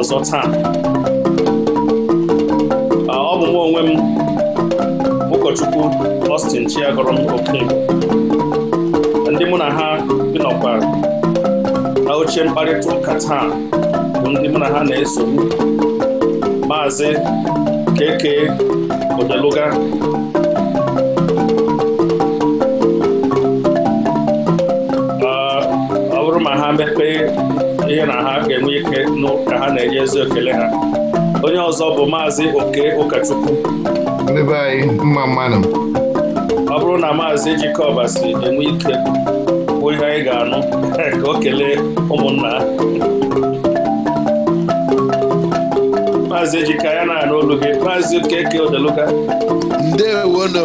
ọzọ taa ọ bụ nwa onwe m ụkọchukwu Austin Chiagọrọ m oke ndị mụ na ha n'ọkwa na oche mkparịta ụka taa bụ ndị mụ na ha na-esogbu maazị Keke Odeluga ha ga-enwe ike ka ha na-enye ezi okele ha onye ọzọ bụ maazị oke ụkọchukwu ọ bụrụ na maazị jikọba si enwe ike bụ ihe anyị ga-anụ ka o kelee ụmụnna ha maazị ejika ya na-anụ olu gị maazị okeke odeluga ndewono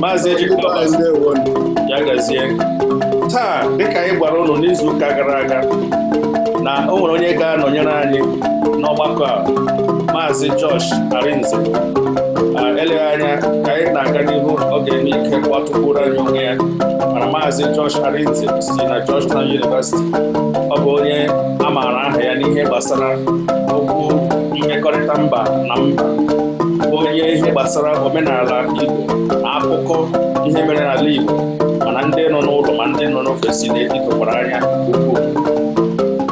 maazị ejika gazie taa dịka anyị gwara ụlọ n'izu ụka gara aga na o nwere onye ga-anọnyere anyị n'ọgbakọ a maazị Josh Arinze eleghị anya ka anyị na-aga n'ihu ọ ga-eme ike anyị onwe ya mana maazị Josh Arinze si na Georgetown University ọ bụ onye a maara aha ya n'ihe gbasara okwu mmekọrịta mba na mba onye ihe gbasara omenala Igbo na akụkọ ihe mere n'ala Igbo ndị nọ n'ụlọ ma ndị nọ n'ofesi na-eji anya ukwuu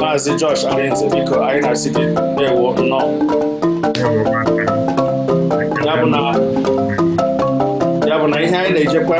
maazị Josh Arinze biko anyị na-asị gị ewo nnọọ ya bụ na ihe anyị na-ejekwa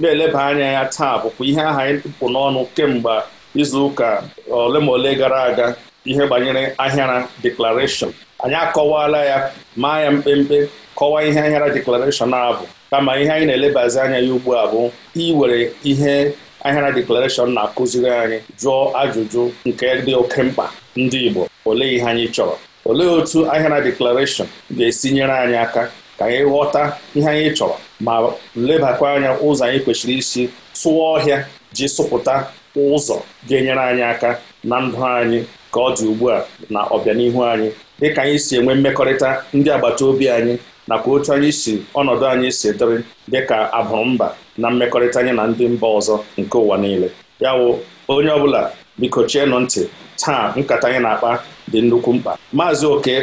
na-eleba anya ya taa bụkwa ihe aha anyị pụ n'ọnụ kemgbe izu ụka ole ma ole gara aga ihe banyere ahịara deklarashọn anyị akọwala ya maa ya mkpemkpe kọwaa ihe ahịara deklarashọn a bụ kama ihe anyị na-elebazi anya ya ugbu a bụ iwere ihe ahịara deklarashọn na-akụziri anyị jụọ ajụjụ nke dị oke mkpa ndị Igbo olee ihe anyị chọrọ olee otu ahịara deklarashọn ga-esi nyere anyị aka ka anyị ghọta ihe anyị chọrọ ma lebakwa anya ụzọ anyị kwesịrị isi tụọ ọhịa ji sụpụta ụzọ ga-enyere anyị aka na ndụ anyị ka ọ dị ugbu a na ọbịanihu anyị dịka anyị si enwe mmekọrịta ndị agbata obi anyị nakwa otu anyị si ọnọdụ anyị si dịrị dịka mba na mmekọrịta anyị na ndị mba ọzọ nke ụwa niile ya wụ onye ọ bụla biko chienụ ntị taa nkata anyị na-akpa dị nnukwu mkpa maazị oke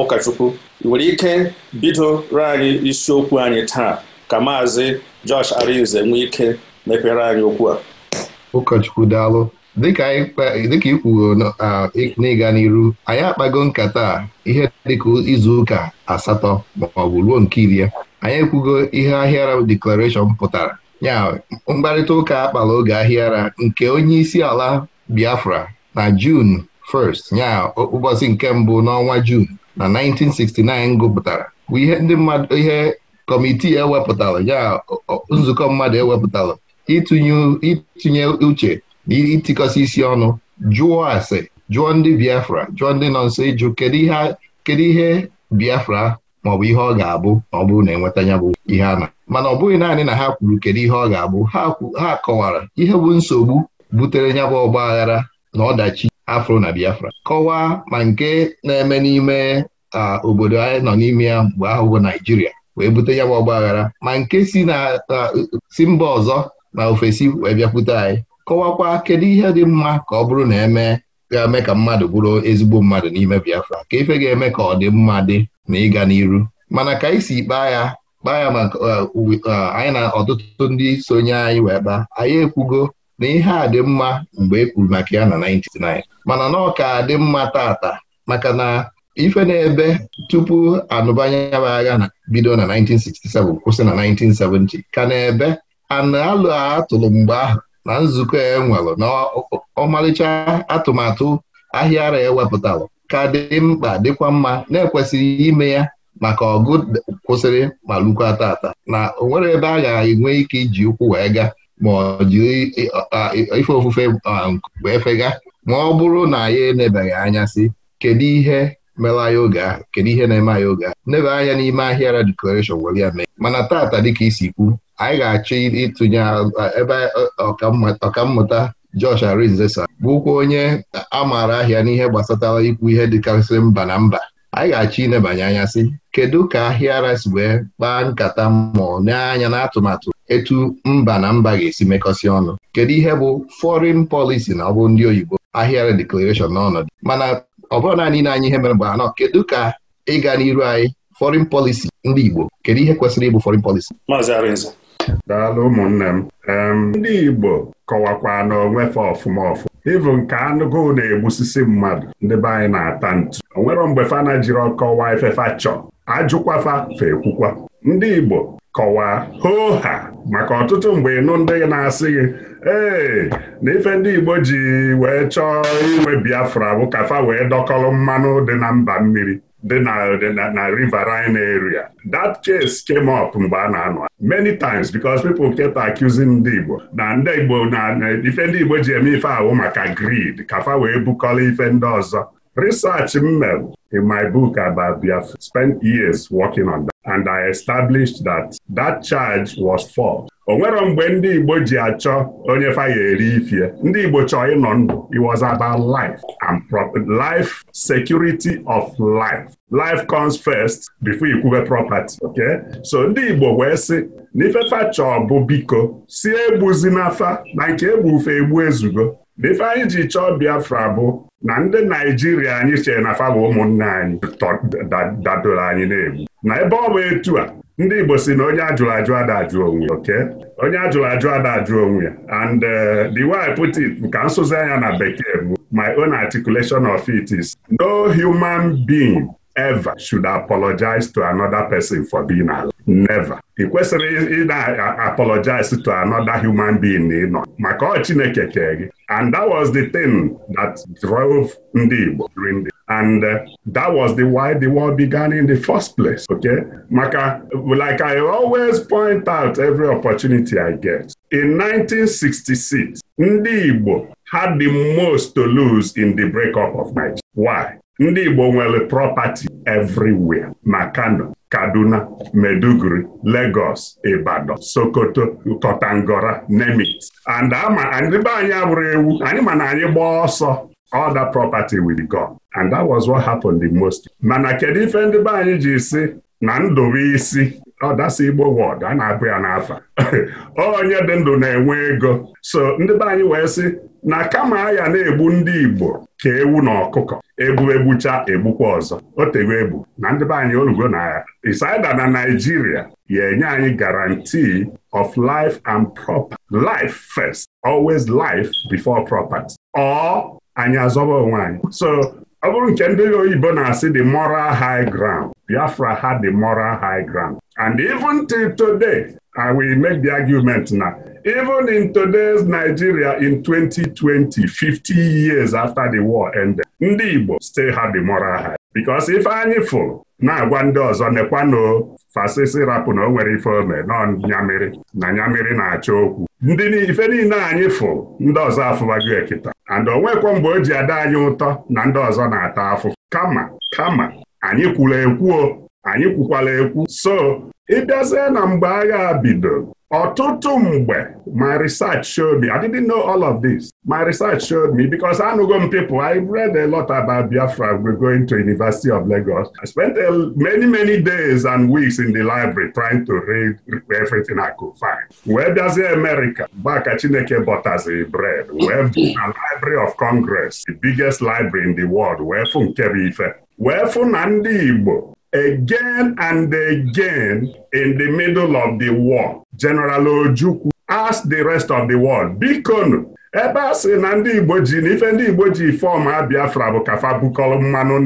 ụkọchukwu ị nwere ike bidoro anyị isiokwu anyị taa ka maazị Josh Arinze nwee ike mepere anyị okwu a ụkọchukwu daalụ dịka i kwuo n'ịga n'iru anyị akpago nkata ihe dịka izu ụka asatọ maọbụ ruo nke iri anyị ekwugo ihe ahịara deklarashọn pụtara ya mkparịta ụka akpala oge ahịara nke onye isi ala Biafra na jun 1st ya ụbọchị nke mbụ n'ọnwa jun na 1969 gụpụtara bụ ihe ndị mmadụ ihe kọmitii ewepụtara ya nzukọ mmadụ ewepụtara ịtụnye uche ịtịkọsị isi ọnụ jụọ ase jụọ ndị Biafra jụọ ndị nọ nso ịjụ kedu ihe Biafra maọbụ ihe ọ ga-abụ ma ọ bụrụ na enweta ya bụ ihe a na mana ọ bụghị naanị na ha kwuru kedu ihe ọ ga-abụ ha kọwara ihe bụ nsogbu butere ya bụ ọgba aghara na ọdachi afro na Biafra kọwaa ma nke na-eme n'ime obodo anyị nọ n'ime ya mgbe ahụ bụ Naijiria wee bute ya bụ ọgba aghara ma nke si si mba ọzọ na ofesi wee bịakwute anyị kọwakwa kedu ihe dị mma ka ọ bụrụ na eme ga-eme ka mmadụ bụrụ ezigbo mmadụ n'ime Biafra ka ife ga-eme ka ọ dị mma dị na ịga n'iru mana ka anyị si kpaa ya kpaa ya maka uh, uh, anyị na ọtụtụ ndị sonye anyị wee kpaa anyị ekwugo na ihe a dị mma mgbe e kwuru maka ya na 99 mana na ka dị mma tata maka na ife na-ebe tupu anụbanye agha bido na 1967 kwụsị na 1970 ka na-ebe ana alụ atụrụ mgbe ahụ na nzukọ e nwere na ọmarịcha atụmatụ ahịa ara ewepụtara ka dị mkpa dịkwa mma na ekwesịrị ime ya maka ọgụ kwụsịrị ma lukwa tata na o nwere ebe a ga-enwe ike iji ụkwụ wee ga ma ọ jiri ife ofufe wee fega ma ọ bụrụ na ya enebeghị anya si kedu ihe mela anyị oge ahụ kedu ihe na-eme anyị oge ahụ anya n'ime ahịara deklarashọn were ya mee mana tata dịka isi kwu anyị ga-achọ ịtụnye ebe ọkammụta Josh Arinzesa bụkwa onye a maara ahịa n'ihe gbasatara ikwu ihe dịkarịsịrị mba na mba anyị ga-achọ inebanye anya sị kedu ka ahịara si wee kpaa nkata mmụọ n'anya na atụmatụ etu mba na mba ga-esi mekọsị ọnụ kedu ihe bụ foreign policy na ọ bụ ndị oyibo ahịara declaration n'ọnọdụ mana ọ bụrụ naanị na anyị ihe mere mgbe anọ kedu ka ịga n'iru anyị foreign policy ndị Igbo kedu ihe kwesịrị ịbụ foreign policy Maazị daalụ ụmụnne m ndị Igbo kọwakwa na onwefe ọfụma ọfụ ịbụ nke anụgụ na-egbusisi mmadụ ndị be anyị na-ata ntu o mgbe fana jiri ọkọwa efefa chọ ajụkwafa fekwukwa ndị Igbo kọwaa hoo ha maka ọtụtụ mgbe ịnụ ndị na-asị gị ee na ife ndị Igbo ji wee chọọ inwe Biafra bụ kafa wee dọkọrọ mmanụ dị na mba mmiri dị na na riverine area that case came up mgbe a na-anọ many times because people kept accusing ndị Igbo na ndị Igbo na ife ndị Igbo ji eme ife ahụ maka greed kafa wee bukọrọ ife ndị ọzọ research m mere in my book about Biafra, spent years working on that. And I established that that charge was false. o nwero mgbe ndị Igbo ji achọ onye fa ya eri ifie ndị Igbo chọọ ịnọ ndụ it was about life and life security of life life comes first before ikwube property okay so ndị Igbo wee sị na ifefa chọọ bụ biko si egbuzi n'afa na nke egbufe egbu ezugo na ife ji chọọ Biafra bụ na ndị Naijiria anyị chere na fa ụmụnne ụmụnna anyị dadoro anyị na-egbu na ebe ọ bụ etu a ndị Igbo si na onye ajụrụ ajụ adajụ ajụ onwe oke onye ajụrụ ajụ adajụ onwe ya and uh, the way put it nka nsụzi anya na bekee bụ my own articulation of it is no human being ever should apologize to another person for being alive. never ị kwesịrị ị na-apologize to another human being ị nọ maka ọ Chineke kee gị and that was the thing that drove ndị Igbo and uh, that was the why the war began in the first place okay maka like I always point out every opportunity I get in 1966 ndị Igbo had the most to lose in the breakup of Nigeria why ndị Igbo nwere property everywhere na Kano Kaduna Meduguri legos Ibadan Sokoto kotangora Nemit and ama anyị abụrụ ewu anyị ma na anyị gbaa ọsọ all that property will and that was what happened the most mana kedu ife ndị be anyị ji si na ndụ isi ọ oh, Igbo wọd a na-abụ ya n'afa oh, onye dị ndụ na-enwe ego so ndị be anyị wee sị na kama ya na-egbu ndị Igbo ka ewu na ọkụkọ Ebu egbucha egbukwa ọzọ o tego egbu na ndị be anyị olugo na isaida na Naijiria ya enye anyị guarantee of life and property life first always life before property ọ anyị azọba onwe anyị so ọ bụrụ nke ndị oyibo na-asị the moral high ground Biafra had the moral high ground and even till today I will make the argument na even in today's Nigeria in 2020 50 years after the war ended ndị Igbo site ha dị mọra ha because ife anyị fụ na-agwa ndị ọzọ nekwanụ fasisi rapụ na o nwere ife ome nọ nyamiri na nyamiri na acha okwu ndị ife niile anyị fụ ndị ọzọ afụbago ekita and onwekwa mgbe o ji ada anyị ụtọ na ndị ọzọ na-ata afụfụ kama kama anyị kwuru ekwuo anyị kwukwala ekwu so ịbịazie na mgbe agha bido ọtụtụ mgbe my research showed me I didn't know all of this my research showed me because anụgo m people I read a lot about Biafra we going to University of Lagos I spent many many days and weeks in the library trying to read everything I could find wee bịazie America gbaka Chineke bọtazi bread wee bụ na Library of Congress the biggest library in the world wee fụ nke bụ ife wee fụ na ndị Igbo again and again in the middle of the war. General Ojukwu asked the rest of the world, bikonu ebe a sị na ndị Igbo na ife ndị Igbo ji Biafra bụ kafa bukọrọ mmanụ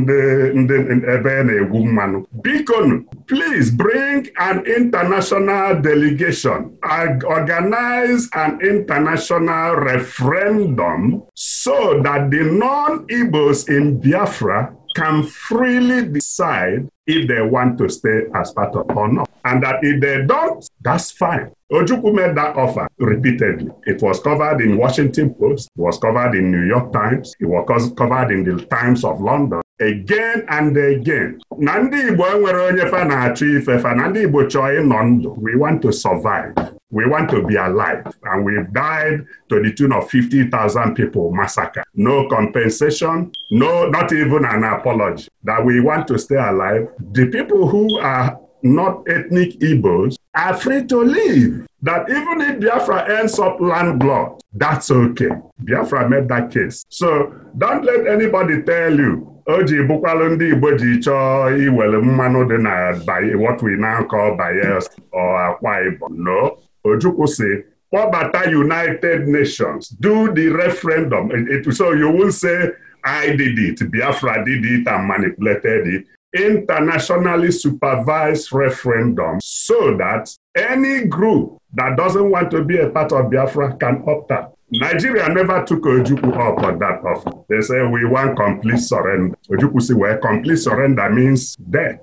ndị ebe e na-egwu mmanụ bikonu please bring an international delegation organize an international referendum so that the non-Igbos in Biafra can freely decide if they want to stay as part of or not. And that if they don't, that's fine. Ojukwu made that offer repeatedly. It was covered in Washington Post, it was covered in New York Times, it was covered in the Times of London. Again and again. na ndị Igbo enwere onye fa na-achọ ife fa na ndị Igbo chọọ ịnọ ndụ we want to survive we want to be alive and we've died to the tune of 50,000 people massacre no compensation no not even an apology that we want to stay alive the people who are not ethnic Igbos are free to live. That even if Biafra ends up landlocked, that's okay. Biafra made that case. So don't let anybody tell you o ji bụkwalụ ndị Igbo ji chọọ iwere mmanụ dị na what we now call Bayelsa or Akwa Ibom. No, Ojukwu si kpọbata United Nations do the referendum. so you will say I did it, Biafra did it and manipulated it. internationally supervised referendum so that any group that doesn't want to be a part of Biafra can opt out. Nigeria never took Ojukwu up on that offer. They say we want complete surrender. Ojukwu si wee complete surrender means death.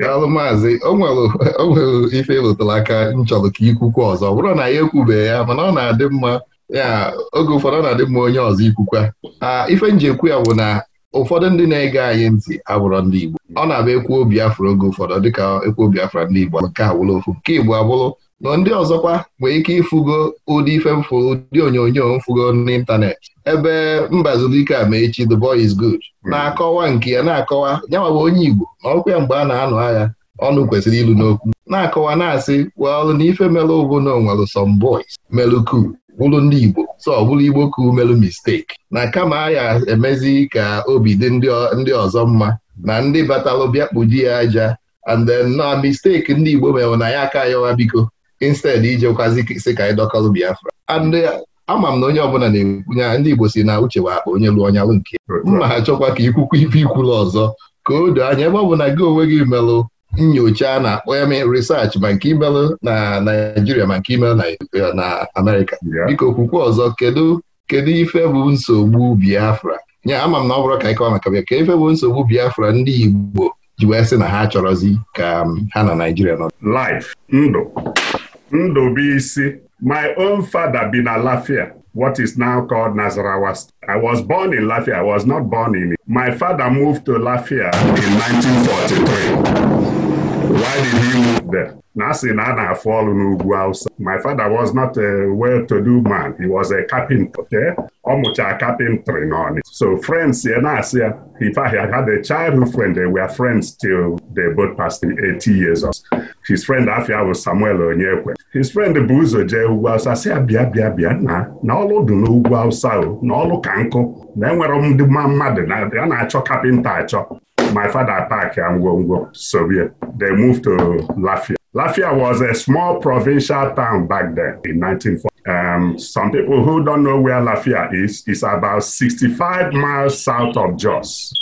Daalụ maazị, o nwere ife ịlụtara aka m chọrọ ka ikwukwu ọzọ ọ bụrụ na ya ekwubeghị ya mana ọ na-adị mma ya oge ụfọdụ ọ na-adị mma onye ọzọ ikwukwa ah, ife nji ya bụ na ụfọdụ ndị na-ege anyị ntị abụrọ ndị Igbo ọ na ekwu ekwuo Biafra oge ụfọdụ dịka ekwuo Biafra ndị Igbo nke awụlụ ofu nke Igbo abụrụ na ndị ọzọkwa nwee ike ịfụgo ụdị ife mfụ ụdị onyonyo mfụgo n'ịntanetị ebe mbazụlike a ma echi the boy is good hmm. na-akọwa nke ya na-akọwa nyawa bụ onye Igbo na ọkwa ya mgbe a na-anụ agha ọnụ kwesịrị ilu n'okwu na-akọwa na-asị well na ife melụ bụ na onwelu melu cool bụrụ ndị Igbo so ọ bụrụ Igbo ka umerụ mistake na kama ya emezi ka obi dị ndị ọzọ mma na ndị batalụ bịa ya aja and then na mistake ndị Igbo mewe na ya aka yawa biko instead ijekwazi si ka anyị Biafra and eh, ama m na onye ọbụla na-ekwunye ndị Igbo si na uche wa akpa onye lụọ ọnyalụ nke nke mma ha chọkwa ka ikwukwu ife ikwulu ọzọ ka o anya ebe ọ bụ na gị onwe gị melụ nyocha na-akpọ ya risachị ma nke imelụ na Naijiria ma nke imelụ na Amerịka biko okwukwe ọzọ kedu kedu ife bụ nsogbu Biafra nya ama m na ọ bụrụ ka ịkọwa maka bịa ka ife bụ nsogbu Biafra ndị Igbo ji wee sị na ha chọrọzi ka um, ha na Naijiria nọ life ndụ ndụ bụ isi my own father bi na Lafia what is now called Nasarawa I was born in Lafia. I was not born in it. My father moved to Lafia in 1943. aliri move there na asị na a na-afụ ọrụ n'ugwu Hausa my father was not a well-to-do man he was a carpenter okay ọ mụcha carpentry n'Ọnịcha so friends ya na-asị ya if I had a childhood friend they were friends till they both passed 80 years old his friend afia bụ Samuel Onyekwe his friend bụ ụzọ jee ugwu Hausa sị abịa bịa bịa na na ọlụ dị n'ugwu awụsa o na ọlụ ka nkụ na enwere ndị mmadụ na-achọ kapịnta achọ my father go Ngwongwo, Soviet. They moved to Lafia. Lafia was a small provincial town back then in 1940. Um, some people who don't know where Lafia is, is about 65 miles south of Jos.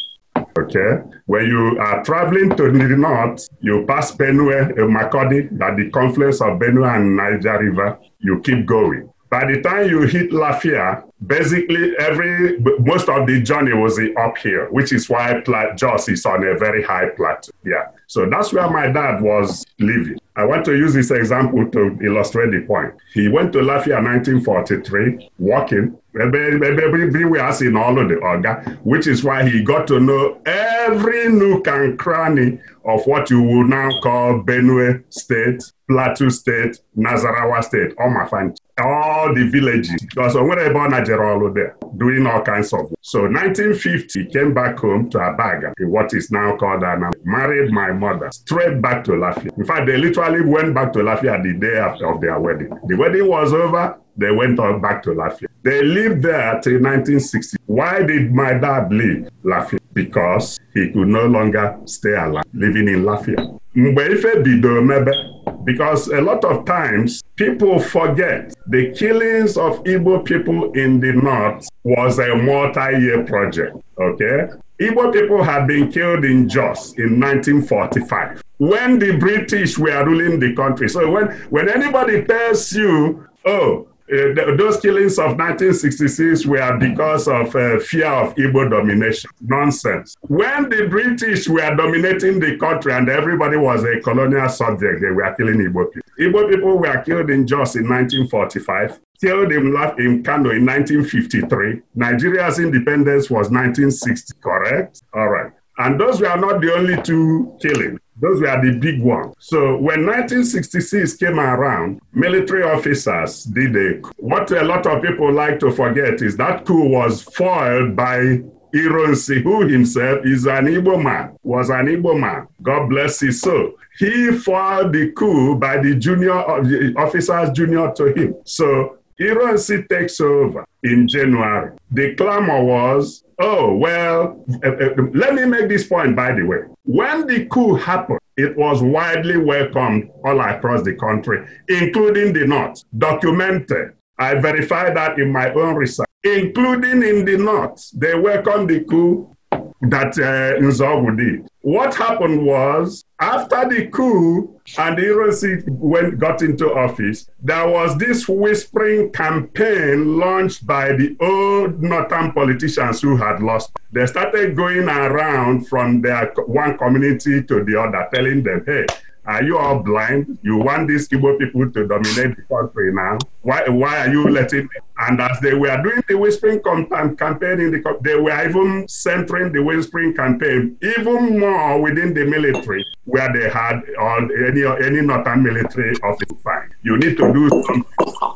Okay. When you are traveling to the north, you pass Benue, uh, Makodi, at the confluence of Benue and Niger River. You keep going. By the time you hit Lafia, basically every most of the journey was up here which is why Jos is on a very high plateau. Yeah. So that's where my dad was living. I want to use this example to illustrate the point. He went to Lafia 1943, walking, everywhere in all of the Oga, which is why he got to know every nook and cranny of what you would now call Benue State, Plateau State, Nazarawa State, all my friends. all the villages because onwere ebe ọ na jere ọrụ doing all kinds of work. so 1950 came back home to Abaga in what is now called Ana, married my mother straight back to Lafia in fact they literally went back to Lafia the day after of their wedding the wedding was over they went on back to Lafia they lived there till 1960 why did my dad leave Lafia because he could no longer stay alive living in Lafia mgbe ife bidoro mebe because a lot of times people forget the killings of Igbo people in the north was a multi-year project, okay? Igbo people had been killed in Jos in 1945 when the British were ruling the country. So when, when anybody tells you, oh, Eh, those killings of 1966 were because of uh, fear of Igbo domination. Nonsense. When the British were dominating the country and everybody was a colonial subject, they were killing Igbo people. Igbo people were killed in Jos in 1945, killed in, in Kano in 1953. Nigeria's independence was 1960, correct? All right. And those were not the only two killings. Those were the big ones. So when 1966 came around, military officers did a coup. What a lot of people like to forget is that coup was foiled by Ironsi, who himself is an Igbo man, was an Igbo man. God bless his soul. He foiled the coup by the junior uh, officers junior to him. So Ironsi takes over in January. The clamor was, oh, well, uh, uh, let me make this point, by the way. When the coup happened, it was widely welcomed all across the country, including the North, documented. I verified that in my own research, including in the North. They welcomed the coup that uh, Nzogwu did. What happened was, after the coup and Ironsi went got into office, there was this whispering campaign launched by the old northern politicians who had lost. They started going around from their one community to the other, telling them, hey, Are you all blind? You want these Igbo people to dominate the country now? Why, why are you letting them? And as they were doing the whispering um, campaign, in the, they were even centering the whispering campaign even more within the military, where they had on any any northern military office. Fine, you need to do something.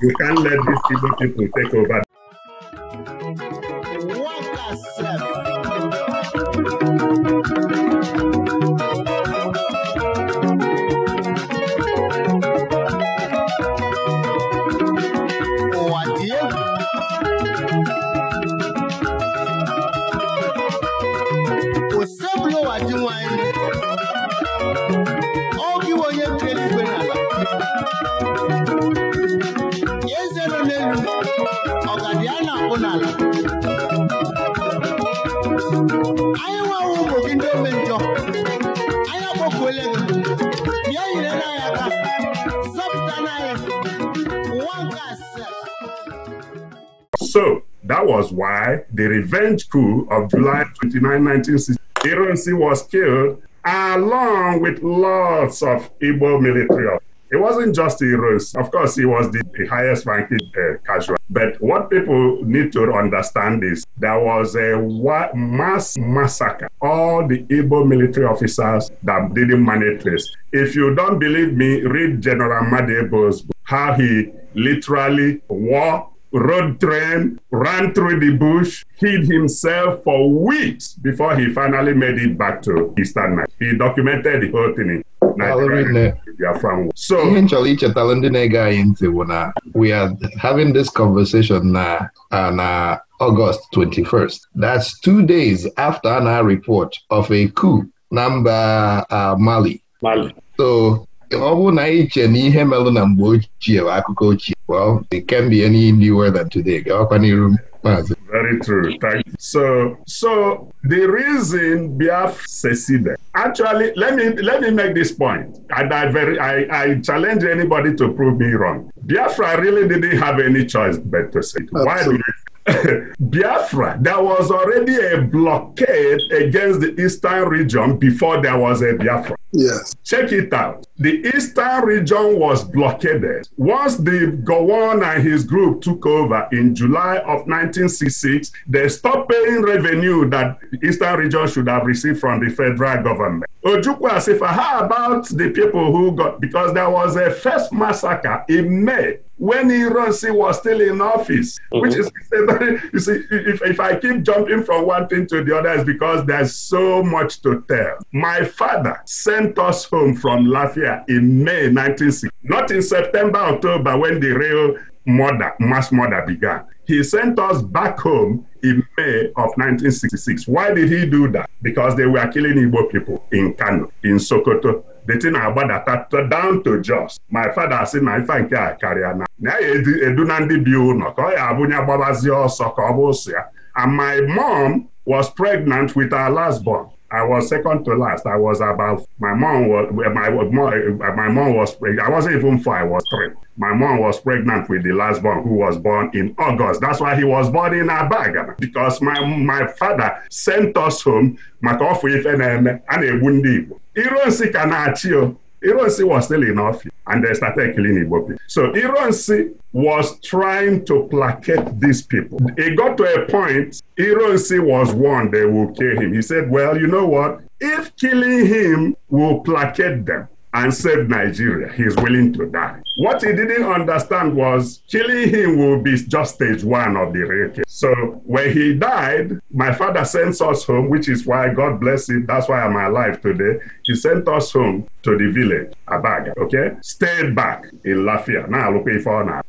You can't let these Igbo people take over. What n'ala anyị nwewa ụmụ gị ndị ome njọ anyị akpọkuole gị bịa nyere na anyị aka zọpụta na asaa. So that was why the revenge coup of July 29, 1960, Ironsi was killed along with lots of Igbo military officers. It wasn't just rose Of course, he was the, the highest ranking uh, casual. But what people need to understand is there was a wa- mass massacre. All the Igbo military officers that didn't manage this. If you don't believe me, read General Madebo's book, how he literally walked road train, ran through the bush, hid himself for weeks before he finally made it back to Eastern night He documented the whole thing in Biafra nwụ so ihe m chọrọ ichetara ndị na-ege anyị ntị bụ na we are having this conversation na na August 21st that's two days after na report of a coup na mba Mali so ọ bụrụ na anyị na ihe melo na mgbe ochie bụ akụkọ ochie well it can be any new than today gaakwa n'iru maazị very true thank you so so the reason Biafra seceded actually let me let me make this point and i very i i challenge anybody to prove me wrong biafra really didn't have any choice but to say why do biafra there was already a blockade against the eastern region before there was a biafra yes check it out the eastern region was blockaded once the gowon and his group took over in july of 1966 they stopped paying revenue that eastern region should have received from the federal government government. say for how about the people who got, because there was a first massacre in May when Ironsi was still in office, mm-hmm. which is, you see, if, if I keep jumping from one thing to the other, it's because there's so much to tell. My father sent us home from Lafayette in May 1960, not in September, October, when the real murder, mass murder began. He sent us back home in May of 1966. Why did he do that? Because they were killing Igbo people in Kano, in Sokoto. The thing agbadata down to just my father si na ife nke a karịa na na ya edu na ndị bi ụlọ ka ọ ya abụnye gbabazie ọsọ ka ọ bụ and my mom was pregnant with our last born I was second to last. I was about my mom was my my mom was I wasn't even four. I was three. My mom was pregnant with the last born, who was born in August. That's why he was born in Abaga because my my father sent us home. maka ọfụ ife na-eme a na ndị Igbo iro nsị achị o oh. Ironsi was still in office and they started killing Igbo people. So Ironsi was trying to placate these people. It got to a point, Ironsi was warned they will kill him. He said, Well, you know what? If killing him will placate them, and save Nigeria. he is willing to die. What he didn't understand was killing him will be just stage one of the real So when he died, my father sent us home, which is why God bless him. That's why I'm alive today. He sent us home to the village, Abaga, okay? Stayed back in Lafia. Now look for now.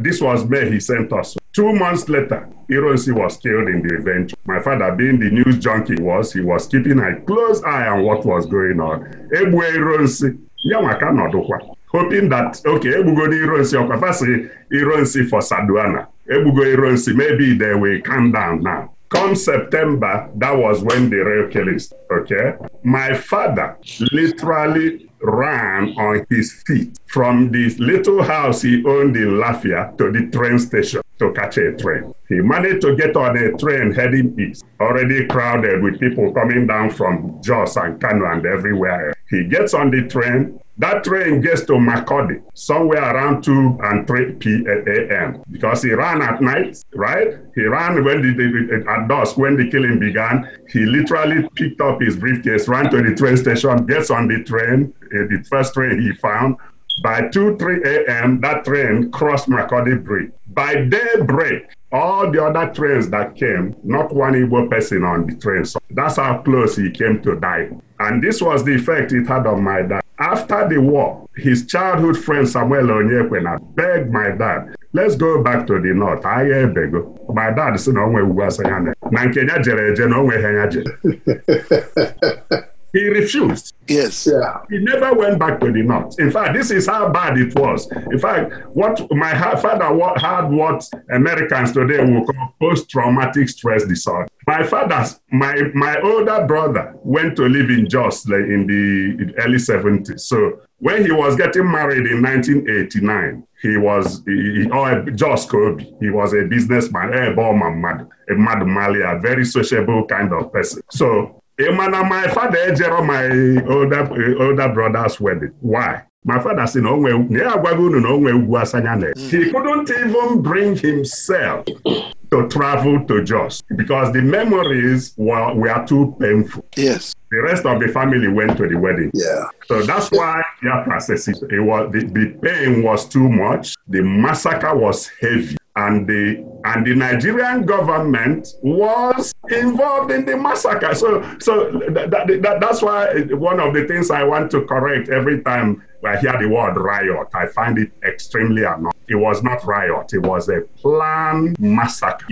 This was May he sent us Two months later, Ironsi was killed in the event. My father, being the news junkie was, he was keeping a close eye on what was going on. Egbue Ironsi, ya nwa nọdụkwa. Hoping that, okay, egbugoro Ironsi ọkwa fasị Ironsi for Saduana. Egbugo Ironsi, maybe they will calm down now. Come September, that was when the real killings, okay? My father literally ran on his feet from the little house he owned in Lafia to the train station to catch a train. He managed to get on a train heading east, already crowded with people coming down from Jos and Kano and everywhere else. He gets on the train. That train gets to makurdi somewhere around 2 and 3 p.m. because he ran at night, right? He ran when the, the, at dusk when the killing began. He literally picked up his briefcase, ran to the train station, gets on the train, eh, the first train he found. By 2 3 a.m., that train crossed makurdi Bridge. by break, all the other trains that came, not one Igbo person on the train. So that's how close he came to die. And this was the effect it had on my dad. After the war, his childhood friend Samuel Onyekwena beg my dad, let's go back to the north, ahịa ebego. My dad sị na onwe ugwu asị na nke nya jere eje na onwe ha nya jere. He refused. Yes. Yeah. He never went back to the north. In fact, this is how bad it was. In fact, what my father had what Americans today will call post-traumatic stress disorder. My father's, my my older brother went to live in Jos like, in the early 70s. So when he was getting married in 1989, he was he, or Jos Kobe. He was a businessman, a bomb man, a mad Malia, very sociable kind of person. So ị eh, na my father ejero eh, my older eh, older brother's wedding why my father si na onwe na ya unu na onwe ugwu asanya na hmm. he couldn't even bring himself to travel to Jos because the memories were, were too painful. Yes. The rest of the family went to the wedding. Yeah. So that's why yeah, process it, it was the, the pain was too much. The massacre was heavy. and the and the Nigerian government was involved in the massacre. So, so that, that, that's why one of the things I want to correct every time I hear the word riot, I find it extremely annoying. It was not riot; it was a planned massacre.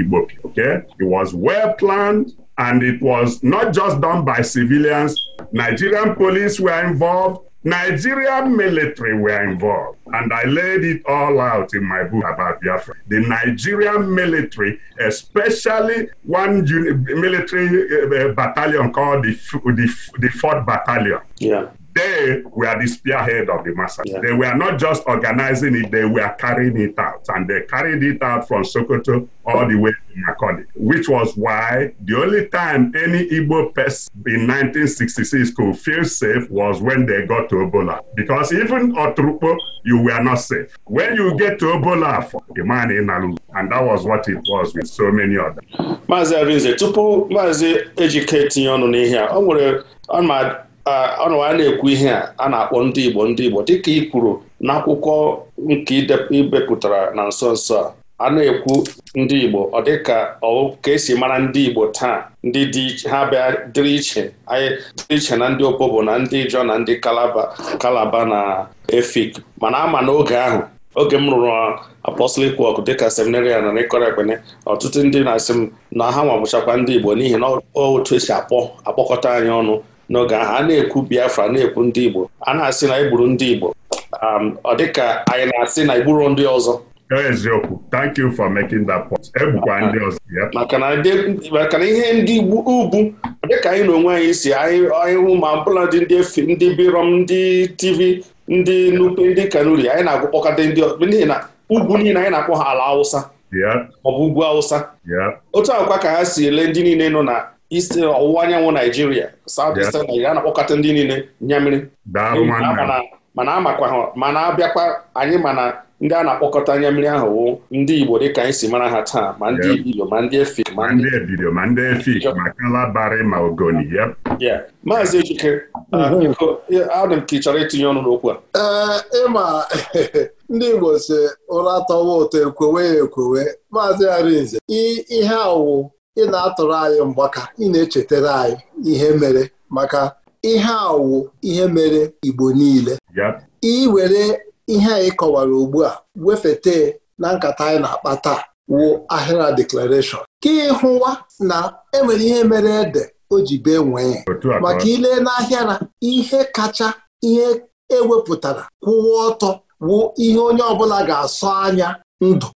Okay, it was well planned, and it was not just done by civilians. Nigerian police were involved. Nigerian military were involved, and I laid it all out in my book about Biafra. The Nigerian military, especially one military eh, eh, battalion called the, the, the 4th Battalion. Yeah. they were the spearhead of the massacre. Yeah. They were not just organizing it, they were carrying it out. And they carried it out from Sokoto all the way to Makoni, which was why the only time any Igbo person in 1966 could feel safe was when they got to Obola. Because even Otrupo, you were not safe. When you get to Obola, the man in Nalu, and that was what it was with so many others. Maazị Arinze, tupu Maazị Ejike tinye ọnụ n'ihe a, ọ nwere ọnụ a na-ekwu ihe a a na-akpọ ndị Igbo ndị Igbo dịka ị kwuru n'akwụkwọ nke ibepụtara na nso nso a a na-ekwu ndị Igbo ọ dịka ọ ka esi mara ndị Igbo taa ndị ha bịa dịrị iche dịrị iche na ndị bụ na ndị Ijọ na ndị Kalaba Kalaba na Efik mana ama n'oge ahụ oge m rụrụ apostolic work dịka seminarian na ịkọrọ ekpene ọtụtụ ndị na-asị m na ha nwabụchakwa ndị Igbo n'ihi na otu esi akpọ akpọkọta anyị ọnụ n'oge ahụ a na-ekwu Biafra na-ekwu ndị Igbo a na-asị na igburu ndị Igbo um, ọ dị ka anyị na-asị na igburu ndị ọzọ eziokwu thank you for making that point egbukwa ndị ọzọ maka na ihe ndị ugwu dịka anyị na onwe anyị si anyị hụ ma ọbụla dị ndị efi ndị birom ndị TV ndị nupe ndị kanuri anyị na-agwụkpọkọta ndị n'ihi na ugwu niile anyị na-akpọ ha ala awụsa maọbụ ugwu awụsa otu akwa ka ha si ele ndị niile nọ na isi ọwụwa uh, anyanwụ naijiria southeastern naijiria a na-akpọkọta ndị niile nyamiri mana amakwa mana abịakwa anyị mana ndị a na-akpọkọta nyamiri ahụ wụ ndị igbo dị ka anyị si mara ha taa ma ndị ibilo ma ndị efik ma ndị ebido, ma ndị efik ma kalabari ma ogoni maazị ejike uh, mhm. adị m ka ị chọrọ itinye ọnụ n'okwu a eh, ịma ndị igbo si ụra tọwa ụtọ ekwewe ya ekwewe maazị arinze ihe awụ ị na-atụrụ anyị mgbaka ị na-echetara anyị ihe mere maka ihe awụ ihe mere Igbo niile were ihe anyị kọwara ugbu a wefete na nkata anyị na-akpa taa wụ ahịra deklarashọn ka ịhụwa na enwere ihe mere ede o ji bee nwee maka ile na ihe kacha ihe ewepụtara kwụwa ọtọ wụ ihe onye ọbụla ga-asọ anya ndụ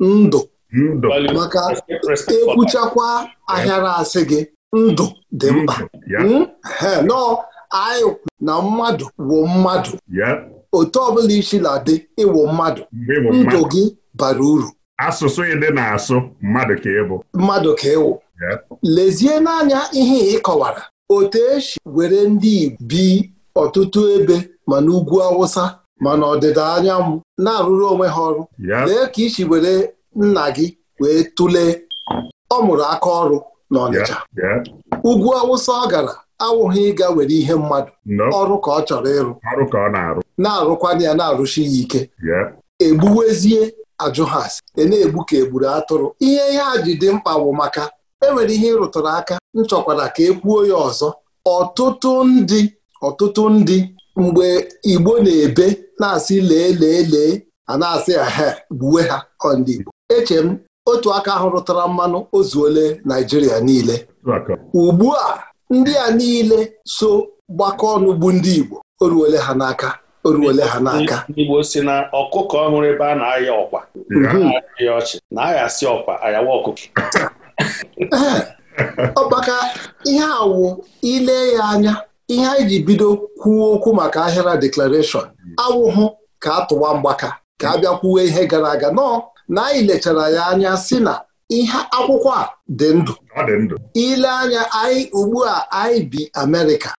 ndụ ndụ maka ekwuchakwa ahịara asị gị ndụ dị mkpa hmm? nọọ anyị na mmadụ wụ mmadụ otu ọbụla isi na-adị ịwụ mmadụ ndụ gị bara uru asụsụ ịdị na-asụ mmadụ ka ịbụ mmadụ ka ịwụ lezie n'anya ihe ịkọwara otu esi were ndị Igbo bi ọtụtụ ebe ma n'ugwu Awụsa ma n'ọdịda anyanwụ na-arụrụ onwe ha ọrụ lee ka isi were nna gị wee tụlee ọ mụrụ aka ọrụ n'Ọnịcha ugwu Awụsa ọ gara awụghị ịga were ihe mmadụ ọrụ ka ọ chọrọ ịrụ na na-arụkwa ya na arụshi ya ike egbuwezie ajụ ha asị e na-egbu ka egburu atụrụ ihe ihe a ji dị mkpa bụ maka enwere ihe ịrụtụrụ aka m chọkwara ka e kwuo ya ọzọ ọtụtụ ndị ọtụtụ ndị mgbe Igbo na-ebe na-asị lee lee lee a na-asị ha gbuwe ha ndị Igbo eche m otu aka ahụ rụtara mmanụ o ole Naijiria niile ugbu a ndị a niile so gbakọ ọnụ bụ ndị Igbo o ruole ha n'aka o ole ha n'aka Igbo si na ọkụkọ ọhụrụ ebe a na-aya ọkwa ọchị na-aghasị ọkwa ayawa ọkụkọ ọkpaka ihe awụ ile ya anya ihe anyị ji bido kwuo okwu maka ahịara deklarashọn awụhụ ka atụwa mgbaka ka a bịa kwuwe ihe gara aga nọọ na anyị lechara ya anya si na ihe akwụkwọ a dị ndụ ile anya anyị ugbu a anyị bi Amerịka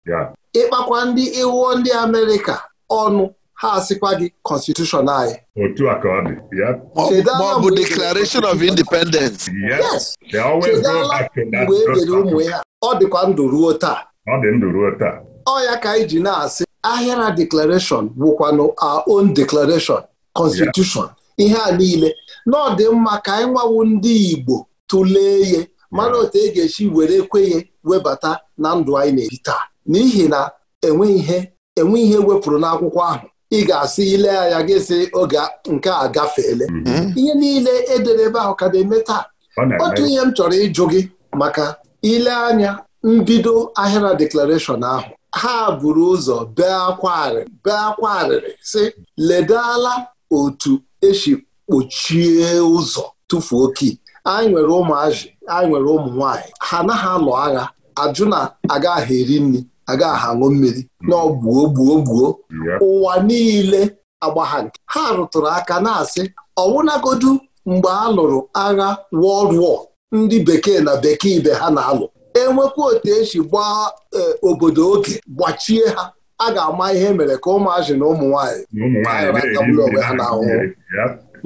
ịkpakwa ndị iwuo ndị Amerịka ọnụ ha asịkwa gị kọnstitushọn anyị Declaration of Independence chedala mgbe e ụmụ ya ọ dịkwa ndụ ruo taa ọ ya ka anyị ji na-asị ahịara Declaration wụkwanụ our own Declaration Constitution ihe a niile na ọ dị mma ka anyị nwawu ndị Igbo tụlee ihe mara otu e ga-esi were kwenye webata na ndụ anyị na-ebi taa n'ihi na enwe ihe enwe ihe wepụrụ n'akwụkwọ ahụ ị ga-asị ile anya gị sị oge nke a gafeele mm-hmm. ihe niile edere ebe ahụ ka na-eme taa otu ihe m chọrọ ịjụ gị maka ile anya mbido ahịra deklarashọn ahụ ha buru ụzọ bee akwa arịrị bee akwa arịrị sị ledala otu esi kpochie ụzọ tụfuo oke anyị nwere ụmụazị anyị nwere ụmụ nwaanyị ha anaghị alụ agha ajụ na agaghị eri nri agaghị aṅụ mmiri na gbuo gbuo gbuo ụwa niile agbagha nke ha rụtụrụ aka na-asị ọwụnagodu mgbe a lụrụ agha wọld War ndị bekee na bekee ibe ha na-alụ enwekwa otu esi gbaa e, obodo oge gbachie ha a ga-ama ihe e mere ka ụmụazị na ụmụ nwaanyị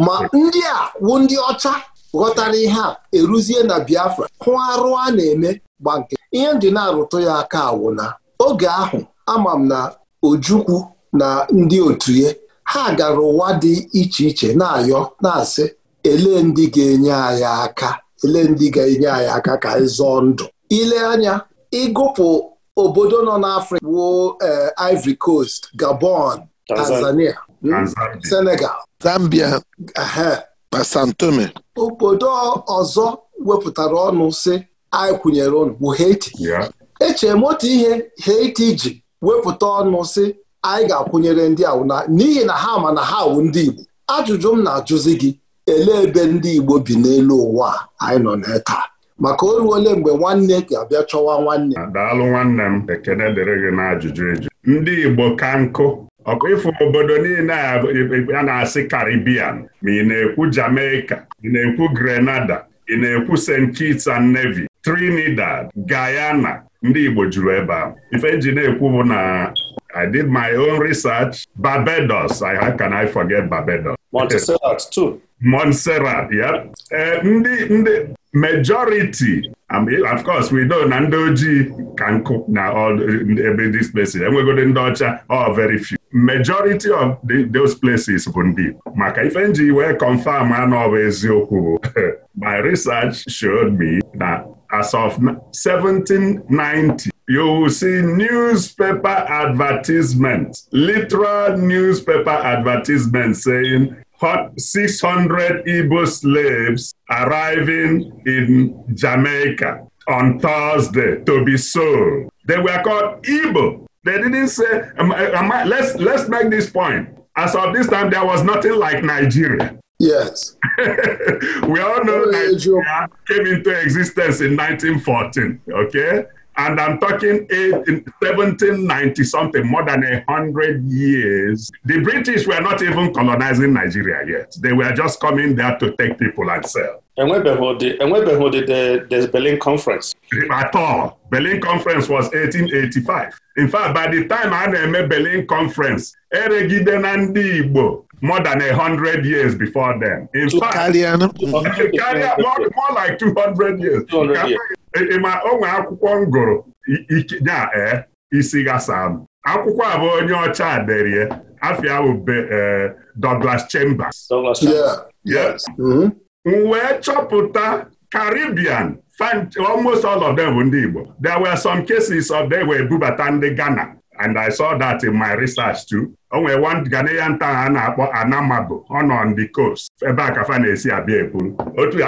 ma ndị a wụ ndị ọcha ghọtara ihe a eruzie na Biafra hụ arụ a na-eme gba nke ihe ndị na-arụtụ ya aka awụ na oge ahụ ama m na Ojukwu na ndị otu ye ha gara ụwa dị iche iche na-ayọ na-asị ele ndị ga-enye anyị aka ele ndị ga-enye anyị aka ka anyị zọọ ndụ ile anya ịgụpụ obodo nọ n'Afrịka wuo eh, Ivory Coast Gabon Tanzania Hmm? Senegal Zambia Basantome obodo ọzọ wepụtara ọnụ si anyị kwụnyere ọnụ bụ Haiti echere m otu ihe Haiti ji wepụta ọnụ si anyị ga-akwụnyere ndị awụna n'ihi na ha ma na ha wụ ndị Igbo ajụjụ m na-ajụzi gị elee ebe ndị Igbo bi n'elu ụwa anyị nọ na taa maka o ruole mgbe nwanne ga-abịa chọwa nwanne daalụ nwanne m ekene dịrị gị n'ajụjụ eju ndị Igbo ka nkụ ọkụ ịfụ obodo niile e, e, a na-asị Caribbean ma ị na-ekwu Jamaica ị na-ekwu Grenada ị na-ekwu St. Kitts and Nevis Trinidad Guyana ndị Igbo juru ebe ahụ ife nji na-ekwu bụ na I did my own research Barbados I how can I forget Barbados Montserrat too Montserrat yep e, ndị ndị majority um, of course we know na ndị ojii ka nkụ na all ebe dis places enwegodo ndị ọcha all oh, very few majority of the, those places bụ ndị Igbo maka ife nji wee confam anọ bụ eziokwu bụ my research showed me that as of 1790 you will see newspaper advertisement literal newspaper advertisement saying 600 Igbo slaves arriving in Jamaica on Thursday to be sold. They were called Igbo. They didn't say, am I let's, let's make this point. As of this time, there was nothing like Nigeria. Yes. we all know Nigeria came into existence in 1914, okay? And I'm talking 1790 something, more than a hundred years. The British were not even colonizing Nigeria yet. They were just coming there to take people and sell. enwebeghị ụdị enwebeghị the Berlin Conference. At all. Berlin Conference was 1885. In fact, by the time a na-eme Berlin Conference, eregide na ndị Igbo more than a hundred years before them, In fact, karịa more, more like 200 years. 200 years. ịma onwe akwụkwọ m gụrụ nya ee isi gasa m akwụkwọ a bụ onye ọcha derie afia bụ e, Douglas Chambers mm-hmm. m wee chọpụta Caribbean almost all of them bụ ndị Igbo there were some cases of them were bubata ndị Ghana and I saw that in my research too. o nwere Ghanaian town a na-akpọ Anamabo ọ on the coast ebe a ka fa na-esi abịa ebu otu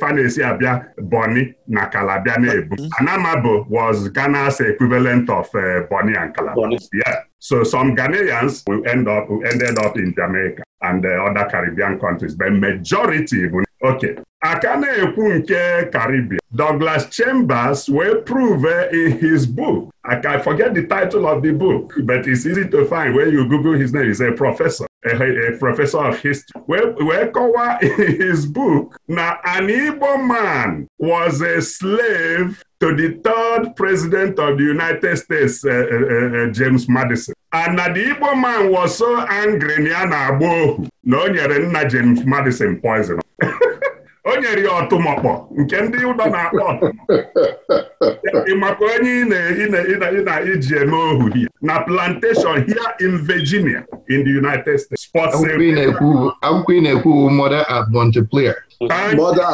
fa na-esi abịa Bonny na Calabia na-ebu mm-hmm. Anamabo was Ghana's equivalent of uh, eh, Bonny and Calabar yeah. so some Ghanaians will end up, will ended up in Jamaica and uh, other Caribbean countries but majority bụ okay aka na-ekwu nke Caribbean Douglas Chambers wee prove in his book I can forget the title of the book but it's easy to find when you Google his name is a professor a, a professor of history wee kọwaa in his book na an Igbo man was a slave to the third president of the United States, uh, uh, uh, uh, James Madison. And na the Igbo man was so angry na ya na-agba ohu na o nyere nna James Madison poison o nyere ya ọtụmọkpọ nke ndị ụdọ na-akpọ ọtụmọkpọ maka onye ị na-eji eme ohu na plantation here in Virginia in the United States sports akwụkwọ ị na-ekwu mother at Montpelier mother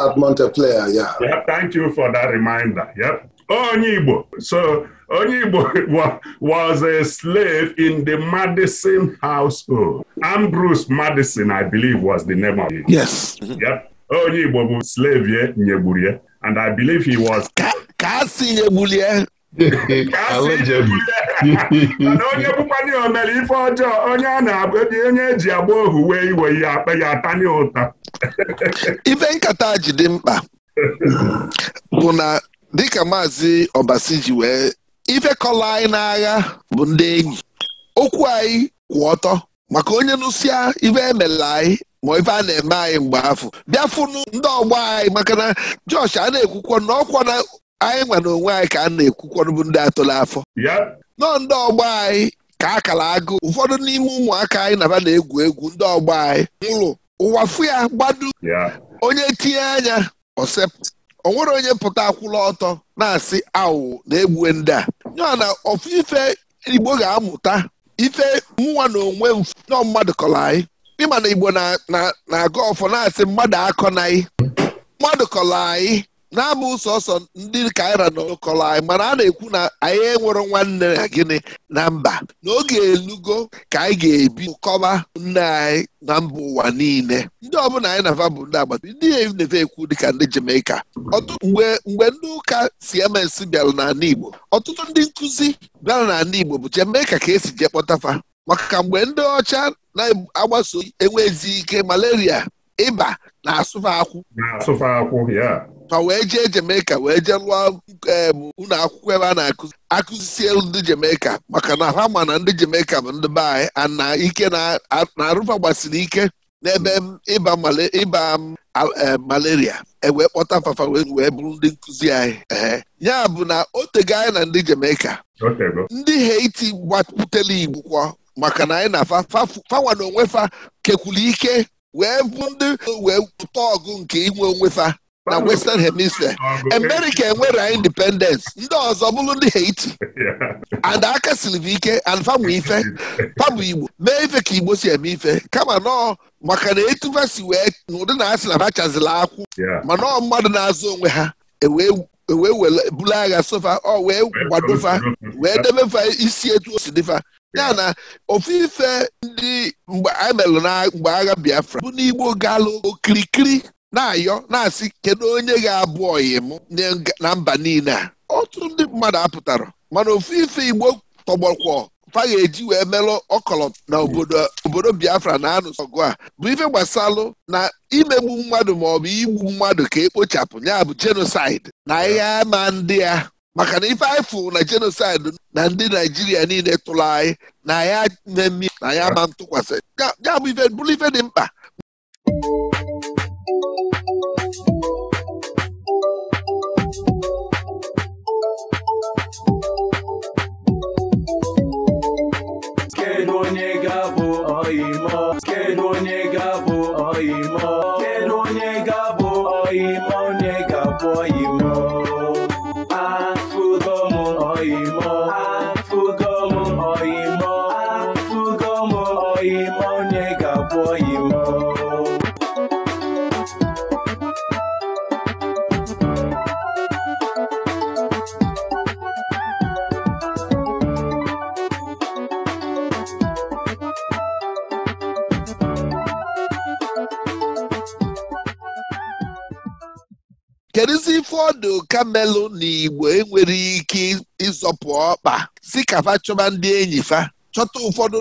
at ya. Ya, thank you for that reminder yep onye Igbo so onye Igbo was a slave in the Madison household Ambrose Madison I believe was the name of it yes yep onye Igbo bụ slave nyegburu ya and I believe he was. ka a si nyegbuli ya na onye bụkwana ya omere ife ọjọọ onye a na onye eji agba ohu wee iwe ihe akpa ya atani ụta ife nkata ji dị mkpa bụ na dịka maazị Obasi ji wee ife kọlọ anyị n'agha bụ ndị enyi okwu anyị kwụ ọtọ maka onye nụsịa ife emela anyị ma ife a na-eme anyị mgbe afọ bịa ndị ọgbọ anyị maka na Josh a na ekwukwọ na ọkwa na anyị nwa na onwe anyị ka a na-ekwukwa bụ ndị atụla afọ nọ ndị ọgbọ anyị ka a kara agụ ụfọdụ n'ime ụmụaka anyị naba na-egwu egwu ndị ọgbọ anyị ụlọ ụwa fụ ya gbadu onye tinye anya osep. onwere nwere onye pụta akwụla ọtọ na-asị awụ na-egbuwe ndị a nyọọ na ife Igbo ga-amụta ife mụnwa na onwe m nọ mmadụ kọrọ anyị ịma na igbo na-agụ ọfọ na-asị mmadụ akọnaghị mmadụ kọrọ anyị na-ama sọsọ ndị kaira na ụkọrọ anyị mana a na-ekwu na anyị enwero nwanne na gịnị na mba n'oge elugo ka anyị ga-ebi kọba nne anyị na mba ụwa niile ndị ọbụla anyị na bụ ndị agbata ndị e na-eve ekwu dịka ndị Jamaica mgbe mgbe ndị ụka CMS bịara n'ala Igbo ọtụtụ ndị nkụzi bịara n'ala Igbo bụ Jamaica ka esi jee kpọtafa maka mgbe ndị ọcha na-agbaso enwezi ike malaria ịba na-asụfe akwụ ma wee jee Jamaica wee jee lụọ ụlọ akwụkwọ ebe a na-akụzi akụzisie ndị Jamaica maka na ha ma na ndị Jamaica bụ ndị be na ike na-arụfa gbasiri ike n'ebe ịba ịba malaria ewee kpọta fafa wee bụrụ ndị nkụzi anyị ya bụ na o tego anyị na ndị Jamaica ndị Haiti gbatutela Igbo maka na anyị na-afa fanwa na onwe fa kekwuru ike wee bụ ndị wee ụtọ ọgụ nke inwe onwe fa na western hemisphere america enwere independence ndị ọzọ bụrụ ndị haiti and aka siri ike and fanwe ife pabụ igbo mee ife ka igbo si eme ife kama nọọ maka na etu fa wee n'ụdị na asị na ha chazila akwụ ma nọọ mmadụ na-azụ onwe ha ewee wee were buru agha sofa ọ wee kwadofa wee debefa isi etu o si dịfa ya na ofu ife ndị mgbe a mgbe agha Biafra bụ n'Igbo galụ okirikiri na-ayọ na-asị kedu onye ga-abụ ọyị na mba niile a ọtụtụ ndị mmadụ apụtara mana ofu Igbo tọgbọkwọ fa ga-eji wee melụ ọkọlọt na obodo Biafra na-anụsọ ọgụ a bụ ife gbasalụ na imegbu mmadụ maọbụ igbu mmadụ ka ekpochapụ ya bụ jenosaịd na ihe ama ndị ya maka na ife anyị na jenosaịd na ndị Naijiria niile tụrụ anyị na ya mmemme na ya ama ntụkwasị ya bụ ife bụrụ ife dị mkpa kamelụ na igbo enwere ike ịzọpụ ọkpa si ka fa chọba ndị enyi fa chọta ụfọdụ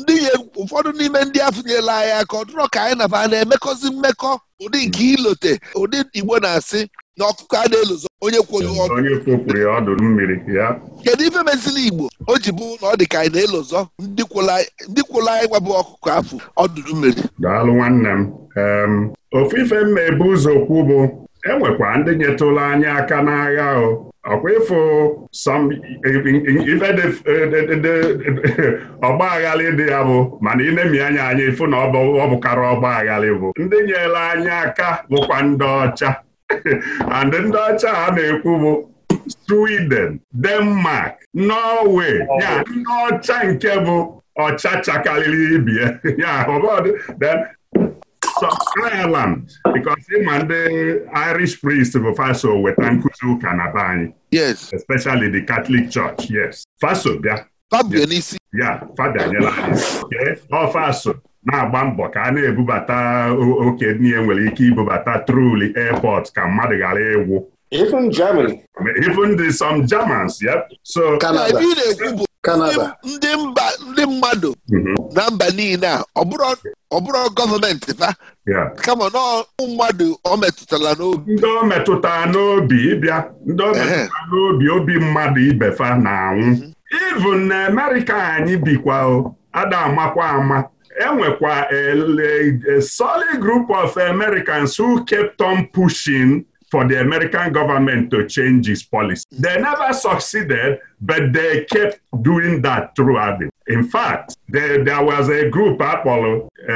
ndị ụfọdụ n'ime ndị afụnyela anyị aka ọ ka anyị naba na-emekọzi mmekọ ụdị nke ilote ụdị igbo na-asị na ọkụkọ a na-elozo onye kwụrụ ọdụ kedu ife mezili igbo o ji bụ na ọ dị ka anyị na elozo ndị kwụla anyị gwabụ ọkụkọ afụ ọdụ mmiri daalụ nwanne m ofe ife mma ebu ụzọ kwu bụ enwekwa ndị nyetụla anyị aka n'agha ahụ ọkwa ịfụ ife ọgba aghalị dị ya bụ mana inemi anya anyị ịfụ na ọ bụkara ọgba aghalị bụ ndị nyere anyị aka bụkwa ndị ọcha and ndị ọcha a na-ekwu bụ Sweden Denmark Norway ya ndị ọcha nke bụ ọcha chakalili ibie ya Ireland because ịma ndị Irish priest bụ faso weta nkuzi ụka na be anyị yes especially the Catholic Church yes faso bịa ya fada nyela anyị ọ faso na-agba mbọ ka a na-ebubata oke niile nwere ike ibubata truli airport ka mmadụ ghara ịwụ. Even Germany. Even the some Germans, yep. So Canada. Ebe bụ ndị mba ndị mmadụ mm-hmm. na mba niile a ọ bụrụ gọọmenti fa kama na mmadụ ọ metụtara n'obi ndị ọ metụtara n'obi ịbịa ndị ọ metụtara n'obi obi mmadụ ibefa n'anwụ. na-anwụ mm-hmm. even na Amerịka anyị bikwa o ada amakwa ama enwekwa a solid group of Americans who kept on pushing for the American government to change its policy. They never succeeded, but they kept doing that throughout it. In fact, there, there was a group, Apollo, uh,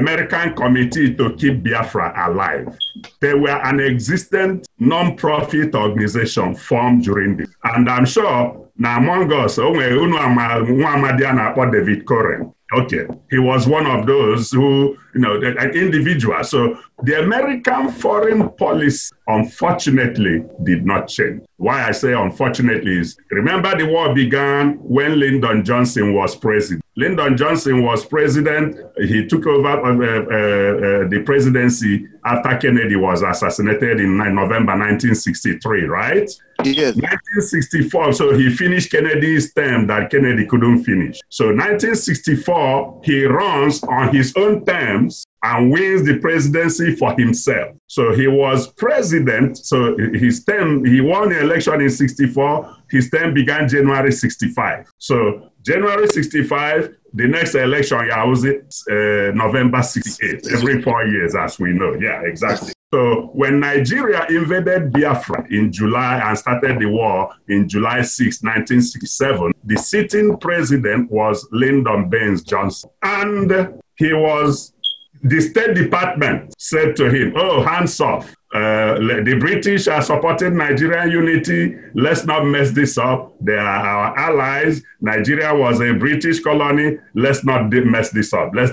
American Committee to Keep Biafra Alive. They were an existent non-profit organization formed during this. And I'm sure na among us, o nwere unu amadi a na-akpọ David Coren. Okay, he was one of those who, you know, an individual. So the American foreign policy, unfortunately, did not change. Why I say unfortunately is remember the war began when Lyndon Johnson was president. Lyndon Johnson was president. He took over uh, uh, uh, uh the presidency after Kennedy was assassinated in November 1963, right? Yes. 1964, so he finished Kennedy's term that Kennedy couldn't finish. So 1964, he runs on his own terms and wins the presidency for himself. So he was president. So his term, he won the election in 64. His term began January 65. So January 65, the next election, I was it, uh, November 68, every four years, as we know. Yeah, exactly. So when Nigeria invaded Biafra in July and started the war in July 6, 1967, the sitting president was Lyndon Baines Johnson. And he was, the State Department said to him, oh, hands off. Uh, the British are supporting Nigerian unity. Let's not mess this up. They are our allies. Nigeria was a British colony. Let's not mess this up. Let's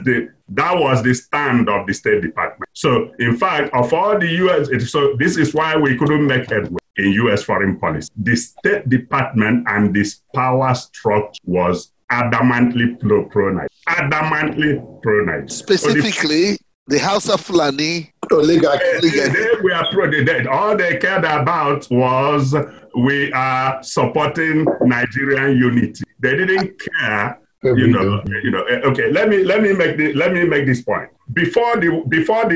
That was the stand of the State Department. So, in fact, of all the U.S., so this is why we couldn't make headway in U.S. foreign policy. The State Department and this power structure was adamantly pro, pro Nigeria. Adamantly pro Nigeria. Specifically, so the, the House of Fulani oligarchy. They, we were pro the dead. All they cared about was we are supporting Nigerian unity. They didn't care you know, you eh, know. Okay, let me let me make the, let me make this point. Before the before the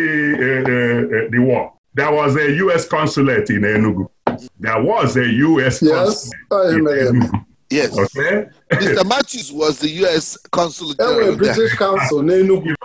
uh, uh, the war, there was a U.S. consulate in Enugu. There was a U.S. Yes, consulate in Enugu. Yes. Okay. Mr. Matthews was the U.S. Consulate general. British consul in Enugu.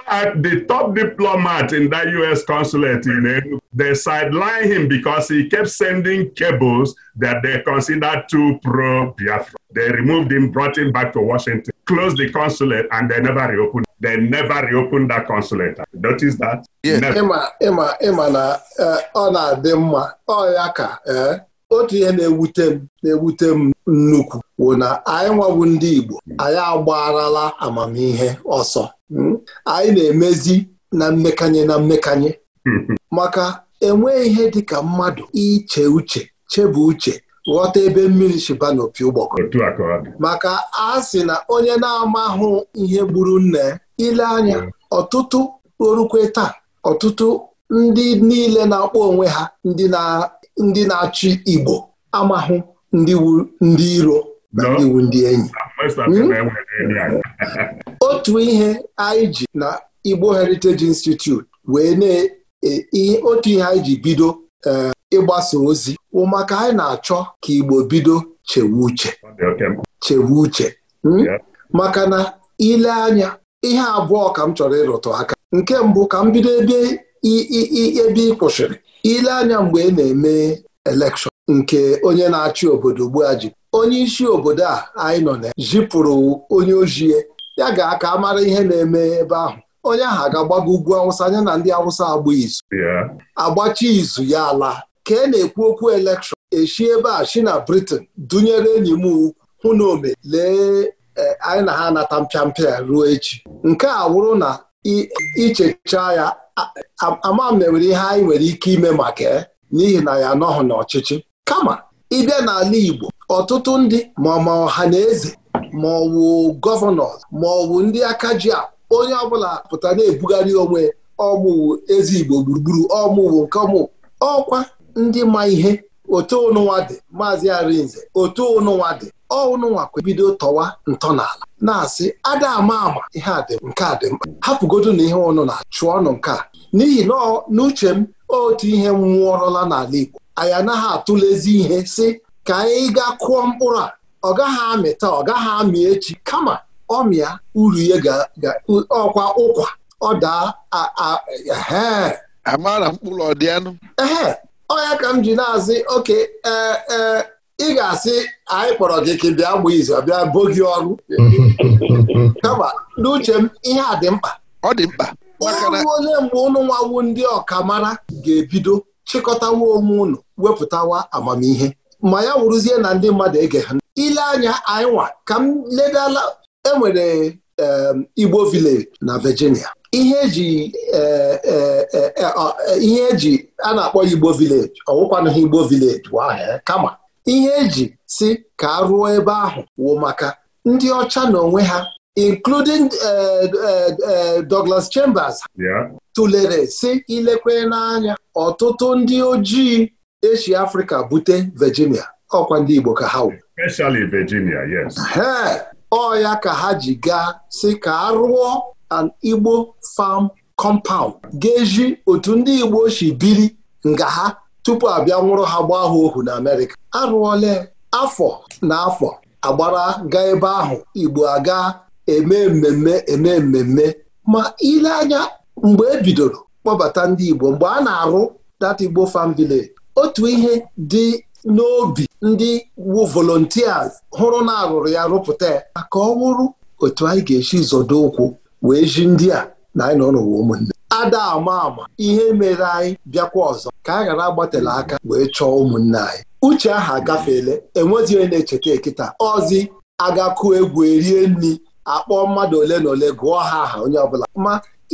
the top diplomat in that U.S. consulate in Enugu, they sideline him because he kept sending cables that they considered too pro-Biafra. They removed him, brought him back to Washington. Close the consulate and they never reopen. They never reopen that consulate. Notice that? Yes. Ịma ma na eh, ọ na-adị mma ọ ya ka eh, otu ihe na-ewute m na-ewute m nnukwu bụ na anyị nwabu ndị Igbo anyị agbarala amamihe ọsọ hmm? anyị na-emezi na mmekanye na mmekanye maka enweghị ihe dịka mmadụ iche uche chebe uche ghọta ebe mmiri shiba n'opi ụgbọkọ maka a sị na onye na-amahụ ihe gburu nne ile anya mm. ọtụtụ orukwe taa ọtụtụ ndị niile na-akpọ onwe ha ndị na-achị Igbo amahụ ndị iro na ndị iwu ndị enyi ah, hmm? otu ihe anyị ji na Igbo Heritage Institute wee na e, otu ihe anyị ji bido Eh, ịgbasa ozi maka anyị na-achọ ka Igbo bido chewe uche chewe uche hmm? maka na ile anya ihe abụọ ka m chọrọ ịrụtụ aka nke mbụ ka m bido ebe ebe ị kwụsịrị ile anya mgbe ị na-eme elekshọn nke onye na-achị obodo ugbu ji onye isi obodo a anyị nọ na jipụrụ onye ojie ya ga-aka mara ihe na-eme ebe ahụ onye ahụ ga agbago ugwu awụsa anya na ndị awụsa agba izu agbachi izu ya ala ka e na-ekwu okwu elekshọn eshi ebe a shi na Britain dunyere enyi m ukwu hụ na ome lee eh, anyị na ha anata mpịampịa ruo echi nke a wụrụ na ichecha ya ama mewere ihe anyị nwere ike ime maka n'ihi na ya anọghị n'ọchịchị kama ịbịa n'ala Igbo ọtụtụ ndị ma ọ ma ọha na eze ma gọvanọ ma ndị aka ji onye ọbụla pụta na-ebugharị onwe ọmụwụ ezi Igbo gburugburu ọmụwụ nke ọmụ ọkwa ndị ma ihe otu ụnụnwa dị maazị Arinze otu ụnụnwa dị ọụnụnwa kwebido tọwa n'ala. na-asị ada ama ama ihe a dị nke a dị mkpa hapụgodu na ihe ụnụ na-achụ ọnụ nke a n'ihi na n'uche m otu ihe nwụọrọla n'ala Igbo anyị anaghị atụlezi ihe si ka anyị gaa kụọ mkpụrụ a ọ gaghị amịta ọ gaghị amị echi kama ọmịa uru ihe ga ọkwa ụkwa ọ daa amara mkpụrụ ọdịanụ ee ọ ya ka m ji na-azị oke ee ị ga-asị anyị kpọrọ gị ka bịa gbaa izu bịa bo gị ọrụ kama n'uche m ihe a dị mkpa ọ dị mkpa onye onye mgbe ụnụ nwawu ndị ọkamara ga-ebido chịkọtawa onwe ụnụ wepụtawa amamihe ma ya wụrụzie na ndị mmadụ ege ha ile anya anyị nwa ka m ledala enwere Igbo village na Virginia ihe eji e, e, e, ihe eji a na-akpọ Igbo village ọwụkwanụghị Igbo village kama ihe eji si ka a rụọ ebe ahụ wụ maka ndị ọcha na onwe ha including Douglas Chambers tụlere si ilekwe n'anya ọtụtụ ndị ojii esi afrika bute Virginia ọkwa ndị Igbo ka ha wụ especially Virginia yes ọ ya ka ha ji gaa si ka a rụọ an Igbo farm compound ga-eji otu ndị Igbo si biri nga ha tupu abịa nwụrụ ha gbaa ha ohu na Amerịka arụọla afọ na afọ agbara ga ebe ahụ Igbo aga eme mmemme eme mmemme ma ile anya mgbe e bidoro kpọbata ndị Igbo mgbe a na-arụ dat Igbo farm village otu ihe dị n'obi ndị wu volontias hụrụ na arụrụ ya rụpụta ya ka ọ wụrụ otu anyị ga-esi zọdo ụkwụ wee ji ndị a na anyị nọ n'ụwa ụmụnne ada ama ama ihe mere anyị bịakwa ọzọ ka a ghara agbatela aka wee chọọ ụmụnne anyị uche ahụ agafeela enwezi onye na-echeta ekịta ọzi agakụ egwu erie nri akpọọ mmadụ ole na ole gụọ ha aha onye ọbụla ma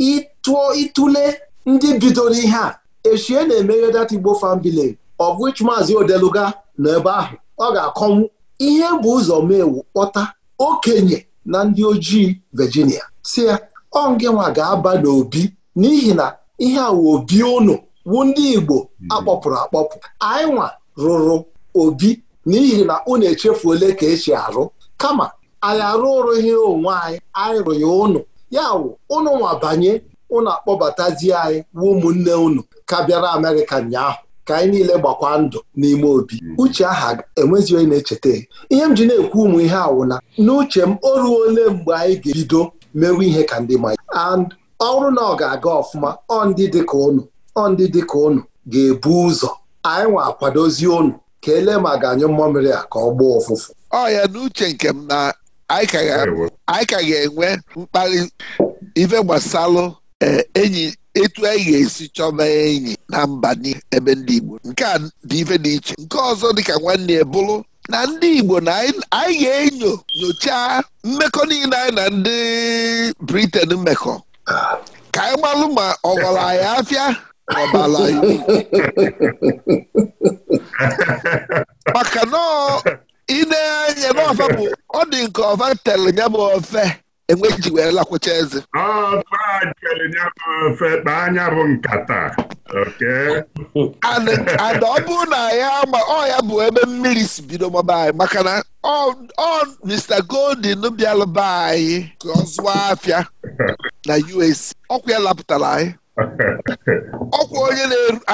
ịtụọ ịtụle ndị bidoro ihe a echie na emeghe data Igbo fan village of which maazị odeluga nọ ebe ahụ ọ ga-akọnwu ihe bụ ụzọ mewu kpọta okenye na ndị ojii Virginia si ya ọ nwa ga-aba n'obi n'ihi na ihe a wụ obi ụnụ wụ ndị Igbo akpọpụrụ akpọpụ anyị nwa rụrụ obi n'ihi na unu echefu ole ka esi arụ kama anyị ihe onwe anyị anyị rụghị ụnụ ya wụ ụnụ nwa banye ụnụ akpọbatazie anyị wụ ụmụnne ụnụ ka bịara Amerịka ụnyaahụ ka anyị niile gbakwa ndụ n'ime obi hmm. uche aha enwezi onye na-echeta ihe m ji na-ekwu ụmụ ihe awụna n'uche m o ruo ole mgbe anyị ga-ebido mewe ihe ka ndị manya and ọ na ọ ga-aga ọfụma ọ ndị dịka ụnụ ọ ndị dịka ụnụ ga-ebu ụzọ anyị nwa akwadozi ụnụ ka ele ma ga-anyụ mmamịrị a ka ọ gbaa ụfụfụ ọ ya n'uche nke m na anyị ka ga-enwe mkparị ife gbasalụ eh, enyi etu anyị e ga-esi chọba enyi na mba ebe ndị Igbo nke a dị ife dị iche nke ọzọ dịka nwanne ya bụrụ na ndị Igbo na anyị ga-enyo nyochaa mmekọ niile anyị na ndị Briten mmekọ ka anyị gbalụ ma ọ gwara anyị afịa ọbala maka na ị na n'ọfa bụ ọ dị nke ọfa tere bụ ofe enwe ji wee lakwụcha eze anya bụ nkata Ada ọ bụrụ na ya ma ọ ya bụ ebe mmiri si bido maba anyị maka na ọ Mr. goldin bịalụba anyị ka ọ zụọ afịa na UAC ọkwụ ya lapụtara anyị ọkwa onye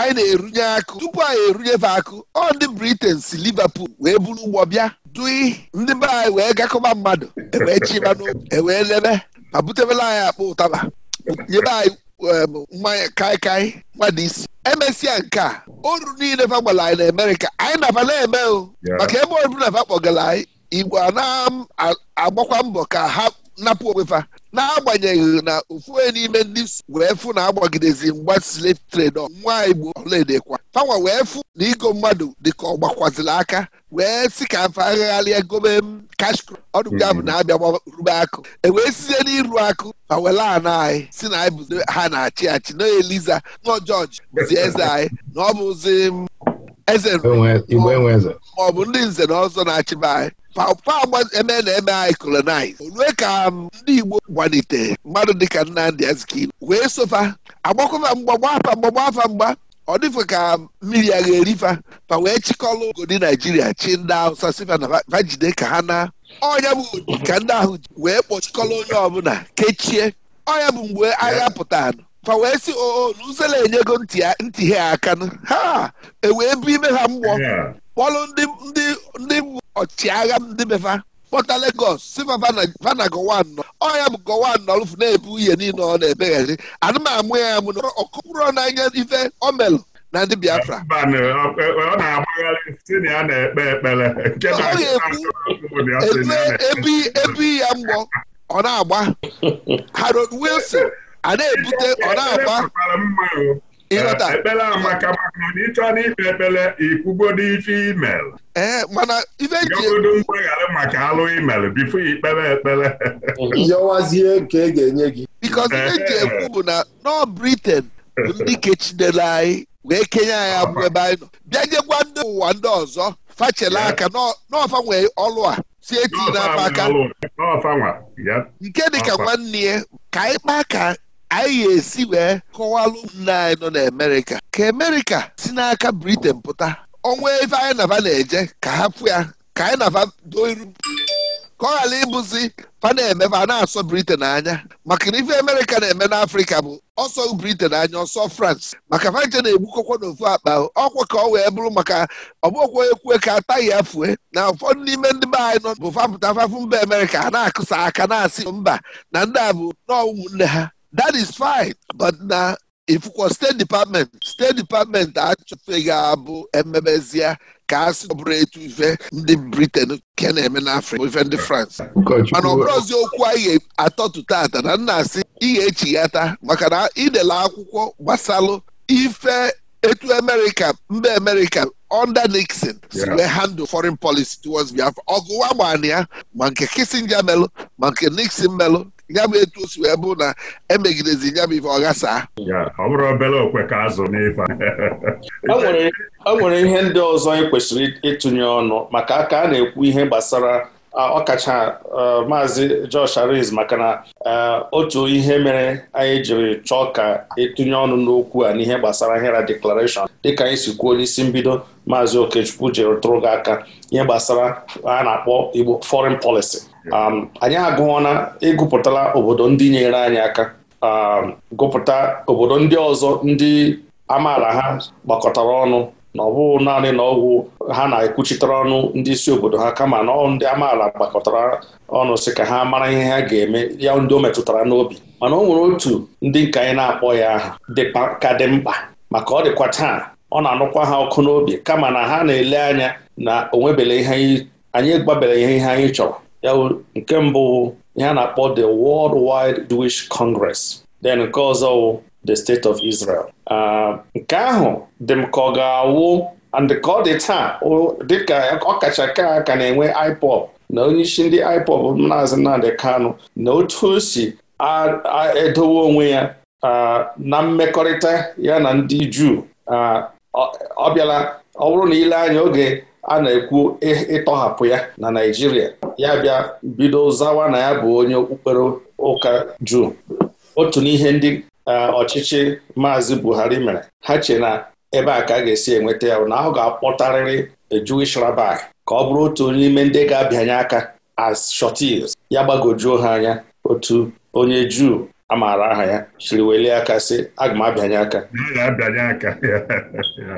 anyị na-erunye akụ tupu anyị erunyefe akụ ọ ndị Britain si Liverpool wee buru ụgbọ bịa dui ndị be anyị wee gakọba mmadụ ewee chiba ewee lebe ma butebela anyị akpa ụtaba nyebe anyị mmanya kaikai mmadụ isi emesịa nke a oru niile fa gbara anyị na Amerika, anyị nafa na-eme o maka ebe ọbụla fa kpọgara anyị igwe a na-agbakwa mbọ ka ha napụ onwe fa n'agbanyeghị na ofu n'ime ndị wee fụ na agbagidezi mgba slave trade nwa igbo ọlaedekwa fanwa wee fụ na igo mmadụ dịka ọ gbakwaziri aka wee si ka afa agagharịa gobe cash crop ọdụga bụ na abịa rube akụ e wee sizie n'iru akụ ma wele ana anyị si na anyị bụzi ha na-achị achị na eliza nọ jọji bụzi eze anyị na ọ bụzi eze maọbụ ndị nze na ọzọ na-achịba anyị papa eme na eme anyị kolonize olue ka um, ndị Igbo gbalite mmadụ dịka Nnamdi Azikiwe wee sofa agbakọfa mgba gbafa mgba gbafa mgba ọ dịfe ka um, mmiri agha erifa fa wee chịkọlụ ogodi Naijiria chi ndị Hausa sifa na vajide ka ha na ọnya bụ ka ndị ahụ wee kpọchikọlụ onye ọbụla kechie ọnya bụ mgbe agha pụtara fa wee si ooluzela enyego ntị ha akanụ ha ewee bụ ime ha mgbọ kpọlụ ndị ndị ọchịagha ndị mefa kpọta Lagos sifa vana gọwa anọ ọ bụ gọwa anọ lụfụ na-ebu ihe niile ọ na-ebeghari anụmamụ ya amụ na ọkụpụrụ n'anya ife o na ndị Biafra ọ na-agbagharị si na ya na ebe ebi ya mgbọ ọ na-agba Harold Wilson a na-ebute ọ na-agba Ekpele amaka maka na ịchọ na ikpe ekpere ikwugodo ife imel eh, e godo mgbaghara maka alụ email bifo ikpere ekpere yọwazie nke e ga-enye gị bikọz ihe e ji eh. ekwu bụ na nọ Britain bụ ndị kechidere anyị wee kenye anyị abụ ebe anyị nọ bịa jekwa ndị ụwa ndị ọzọ fachela aka n'ọfa nwee ọlụ a si eti n'afọ aka nke dịka nwanne ya ka anyị kpaa anyị ga-esi wee kọwalụ nna anyị nọ n'Amerika ka Amerika si n'aka Britain pụta ọnwa ebe anyị na na-eje ka hapụ ya ka anyị na va doo ka ọ ghara ịbụzi fa na-eme fa na-asọ Britain anya maka na ife Amerịka na-eme n'Afrịka bụ ọsọ Britain anya ọsọ France maka fanje na-egbukọkwa n'ofu akpa ọkwa ka ọ wee bụrụ maka ọbụkwa ka ataghị ya fue e, na ụfọdụ n'ime ndị be anyị nọ bụ fapụta fafụ mba Amerịka a na-akụsa aka na-asị mba na ndị a bụ ụmụnne ha that is fine but na ifukwa state department steeti dipatmenti achọfeghị abụ emebezie ka a sị ọ bụrụ etu ife ndị briten ke na-eme n'afrịka ife ndị france mana ọ bụrụzi okwu anyị atọtụ tata na nna asị ihe echighata maka na idele akwụkwọ gbasalụ ife etu amerika mba amerika under nixon si wee handle foreign policy towards biafra ọgụwa gbana ya ma nke kissinger melụ ma nke nixon melụ ya bụ etu o si wee bụ na emegidezi ya bụ ife ọ obere okwe ka azụ o e e nwere ihe ndị ọzọ anyị e kwesịrị ịtụnye ọnụ maka aka a na-ekwu ihe gbasara ọkacha maazị Josh Ariz maka na otu ihe mere anyị jiri chọọ ka ịtụnye ọnụ n'okwu a n'ihe gbasara HERA deklarashọn dịka anyị si kwuo n'isi mbido maazị Okechukwu jiri tụrụ gị aka ihe gbasara a na-akpọ Igbo foreign policy Um, anyị agụọna ịgụpụtala obodo ndị nyere anyị aka um, gụpụta obodo ndị ọzọ ndị amaala ha gbakọtara ọnụ na ọ bụghị naanị na ọgwụ ha na-ekwuchitere ọnụ ndị isi obodo ha kama na ndị amaala gbakọtara ọnụ si ka ha mara ihe ha ga-eme ya ndị o metụtara n'obi mana o nwere otu ndị nke anyị na-akpọ ya aha ka dị mkpa maka ọ dịkwa taa ọ na-anụkwa ha ọkụ n'obi kama na ha na-ele anya na onwebele ihe anyị gbabere ihe ihe anyị chọrọ ya nke mbụ ya na-akpọ the World Wide Jewish Congress then nke ọzọ wụ the State of Israel ah, nke ahụ dị m ka ọ ga-awụ and ka ọ dị taa dịka ọkacha ka ka na-enwe IPOB na onye isi ndị IPOB na Nnamdi Kanu na otu o si edowe onwe ya ah, na mmekọrịta ya na ndị Juu ah, ọ bịala ọ bụrụ na ile anya oge a na-ekwu ịtọhapụ ya na Naịjirịa ya bịa bido zawa na ya bụ onye okpukpere ụka juu otu n'ihe ndị e, ọchịchị maazị Buhari mere ha che na ebe a ka a ga-esi enweta ya na ahụ ga-akpọtarịrị Jewish rabbi ka ọ bụrụ otu onye n'ime ndị ga-abịanye aka as shọtis ya gbagojuo ha anya otu onye juu a maara aha ya siri welie aka sị aga m abịanye aka ka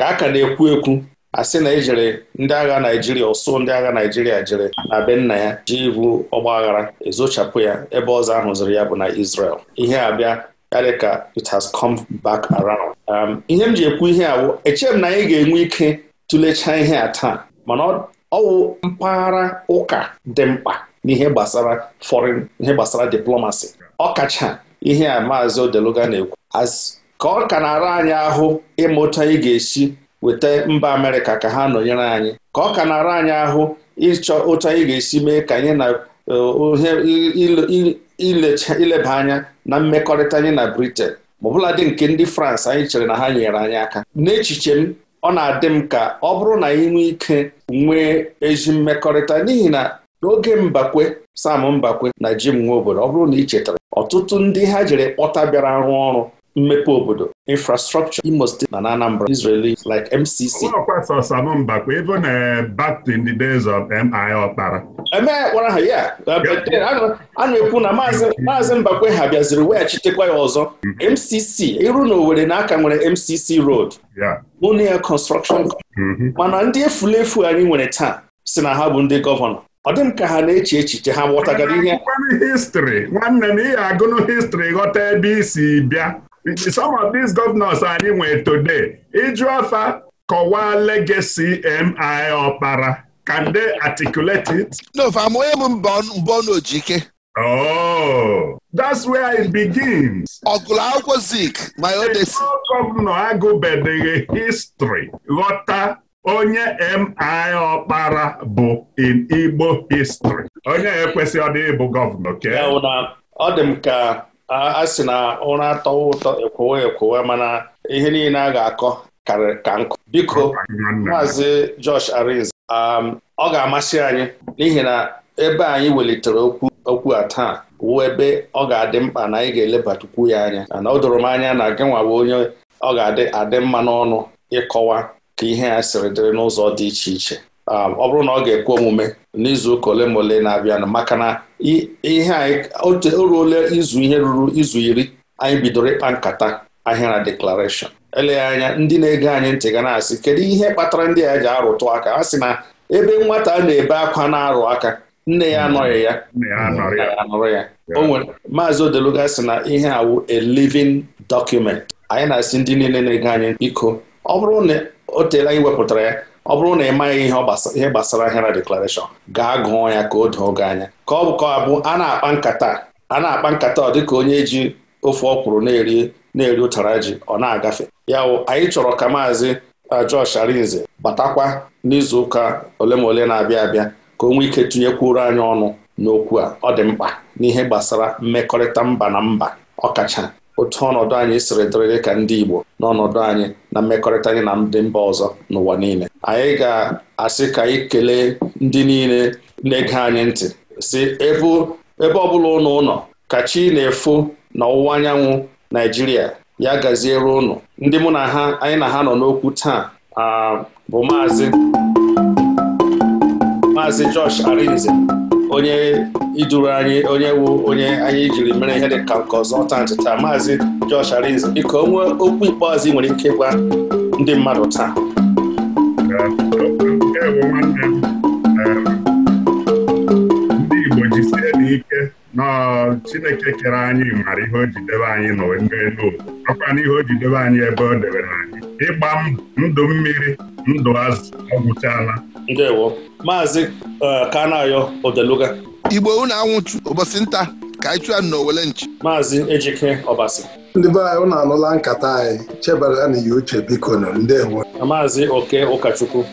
a ka na-ekwu ekwu a sị na ejere ndị agha Naijiria ụsụ ndị agha Naijiria jere na be nna ya ji ibu ọgbaghara ezochapụ ya ebe ọzọ ahụ ya bụ na Israel ihe abịa karịa ka it has come back around. Um, ihe m ji ekwu ihe awụ echeghị m na anyị ga-enwe ike tụlechaa ihe a taa mana ọwụ mpaghara ụka dị mkpa n'ihe gbasara fọrin ihe gbasara diplomasi ọkacha ihe a maazị Odeluga na-ekwu ka ọ ka na-ara anyị ahụ ịmụta ị ga-esi weta mba Amerịka ka ha nọnyere anyị ka ọ ka na-ara anyị ahụ ịchọ ụtọ ị ga-esi mee ka anyị na e, ileba anya na mmekọrịta anyị na Britain ma ọbụladị nke ndị frans anyị chere na ha nyere anyị aka n'echiche m ọ na-adị m ka ọ bụrụ na anyị nwee ike nwee ezi mmekọrịta n'ihi na n'oge Mbakwe Sam Mbakwe na Jim obodo ọ bụrụ na ị chetara ọtụtụ ndị ha jere kpọta bịara rụọ ọrụ mmepe obodo infrastructure Imo State na Anambra Israeli like MCC even ha ya a na-ekwu na uh, maazị Mbakwe ha bịaziri weghachitekwa ya ọzọ MCC mm-hmm. iru na owere na aka nwere MCC road Union Construction mm-hmm. mana ndị efulefu anyị nwere taa si na ha bụ ndị gọvanọ ọ dị m ka ha na-eche echiche ha ghọtagara ihe histrị nwanne na ị agụnụ histrị ghọta ebe isi bịa some of these governors anyị nwere today ịjụ afa kọwaa legacy MI Okpara can they articulate it? No, amụghị m mbọ n'ojike Oh, that's where it begins. ọgụlụ akwụkwọ zik my odesi. gọvanọ agụbedeghị history ghọta onye MI Ọkpara bụ in Igbo history onye ekwesị ọ dị ịbụ gọvanọ ke ọ dị m ka a sị na ụra atọwa ụtọ ekwowe ekwowe mana ihe niile a ga-akọ karịrị ka nkụ biko maazị Josh Arinze um, ọ ga-amasị anyị n'ihi na ebe anyị welitere okwu okwu a taa wụ ebe ọ ga-adị mkpa na anyị ga elebatakwu ya anya na o doro m anya na gị nwa bụ onye ọ ga-adị adị mma n'ọnụ ịkọwa ka ihe a sịrị dịrị n'ụzọ dị iche iche um, ọ bụrụ na ọ ga-ekwe omume n'izu ụka ole ma ole na-abịanụ maka na ihe anyị o ruola izu ihe ruru izu iri anyị bidoro ịkpa nkata ahịara deklarashọn eleghị anya ndị na-ege anyị ntị ga na-asị kedu ihe kpatara ndị a ji arụtụ aka a sị na ebe nwata na-ebe akwa na-arụ aka nne ya anọghị ya anụrụ ya o maazị odeluga sị na ihe awụ a living document anyị na-asị ndị niile na-ege anyị biko ọ bụrụ na o teela anyị wepụtara ya ọ bụrụ na ị maghị ihe gbasara ahịa na deklarashọn gaa gụọ ya ka o doo gị anya ka ọ bụ bụ a na-akpa nkata a na-akpa nkata ọ dịka onye ji ofe ọkwụrụ na-eri na-eri ụtara ji ọ na-agafe ya wụ anyị chọrọ ka maazị Josh uh, Arinze batakwa n'izuụka ole ma ole na-abịa abịa ka o nwee ike tinyekwuru anyị ọnụ n'okwu a ọ dị mkpa n'ihe gbasara mmekọrịta mba na mba ọkacha otu ọnọdụ anyị siri dịrị dị ka ndị Igbo n'ọnọdụ anyị na mmekọrịta anyị na ndị mba ọzọ n'ụwa niile anyị ga-asị ka anyị ndị niile na-ege anyị ntị si ebe ọ bụla ụnụ ụnọ ka chi na-efo na ọwụwa anyanwụ Naijiria ya gaziere ụnụ ndị mụ anyị na ha nọ n'okwu taa ah, bụ maazị maazị Josh Arinze onye iduru anyị onye wu onye anyị jiri mere ihe dị ka nke ọzọ taa ntịta maazị Josh Arinze biko onwe okwu ikpeazụ nwere ike ịgwa ndị mmadụ taa ndị Igbo jisie n'ike Chineke kere anyị mara ihe o ji anyị n'elu ọkwa n'ihe o anyị ebe o debere anyị ịgba ndụ mmiri ndụ azụ ọ Ndewo Maazị uh, Kanayo Odeluga Igbo unu anwụtụ ụbọchị nta ka anyị chụọ n'owele nchi Maazị Ejike Ọbasi ndị be anyị unu anụla nkata anyị chebara na ya uche biko na ndewo Maazị Oke Ụkọchukwu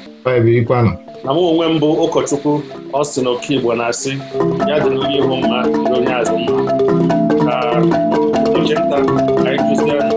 na mụ onwe m bụ ụkọchukwu ọ sị na oke Igbo na-asị ya dịrị onye ihu mma na onye azụ mma ka oche nta anyị kụziere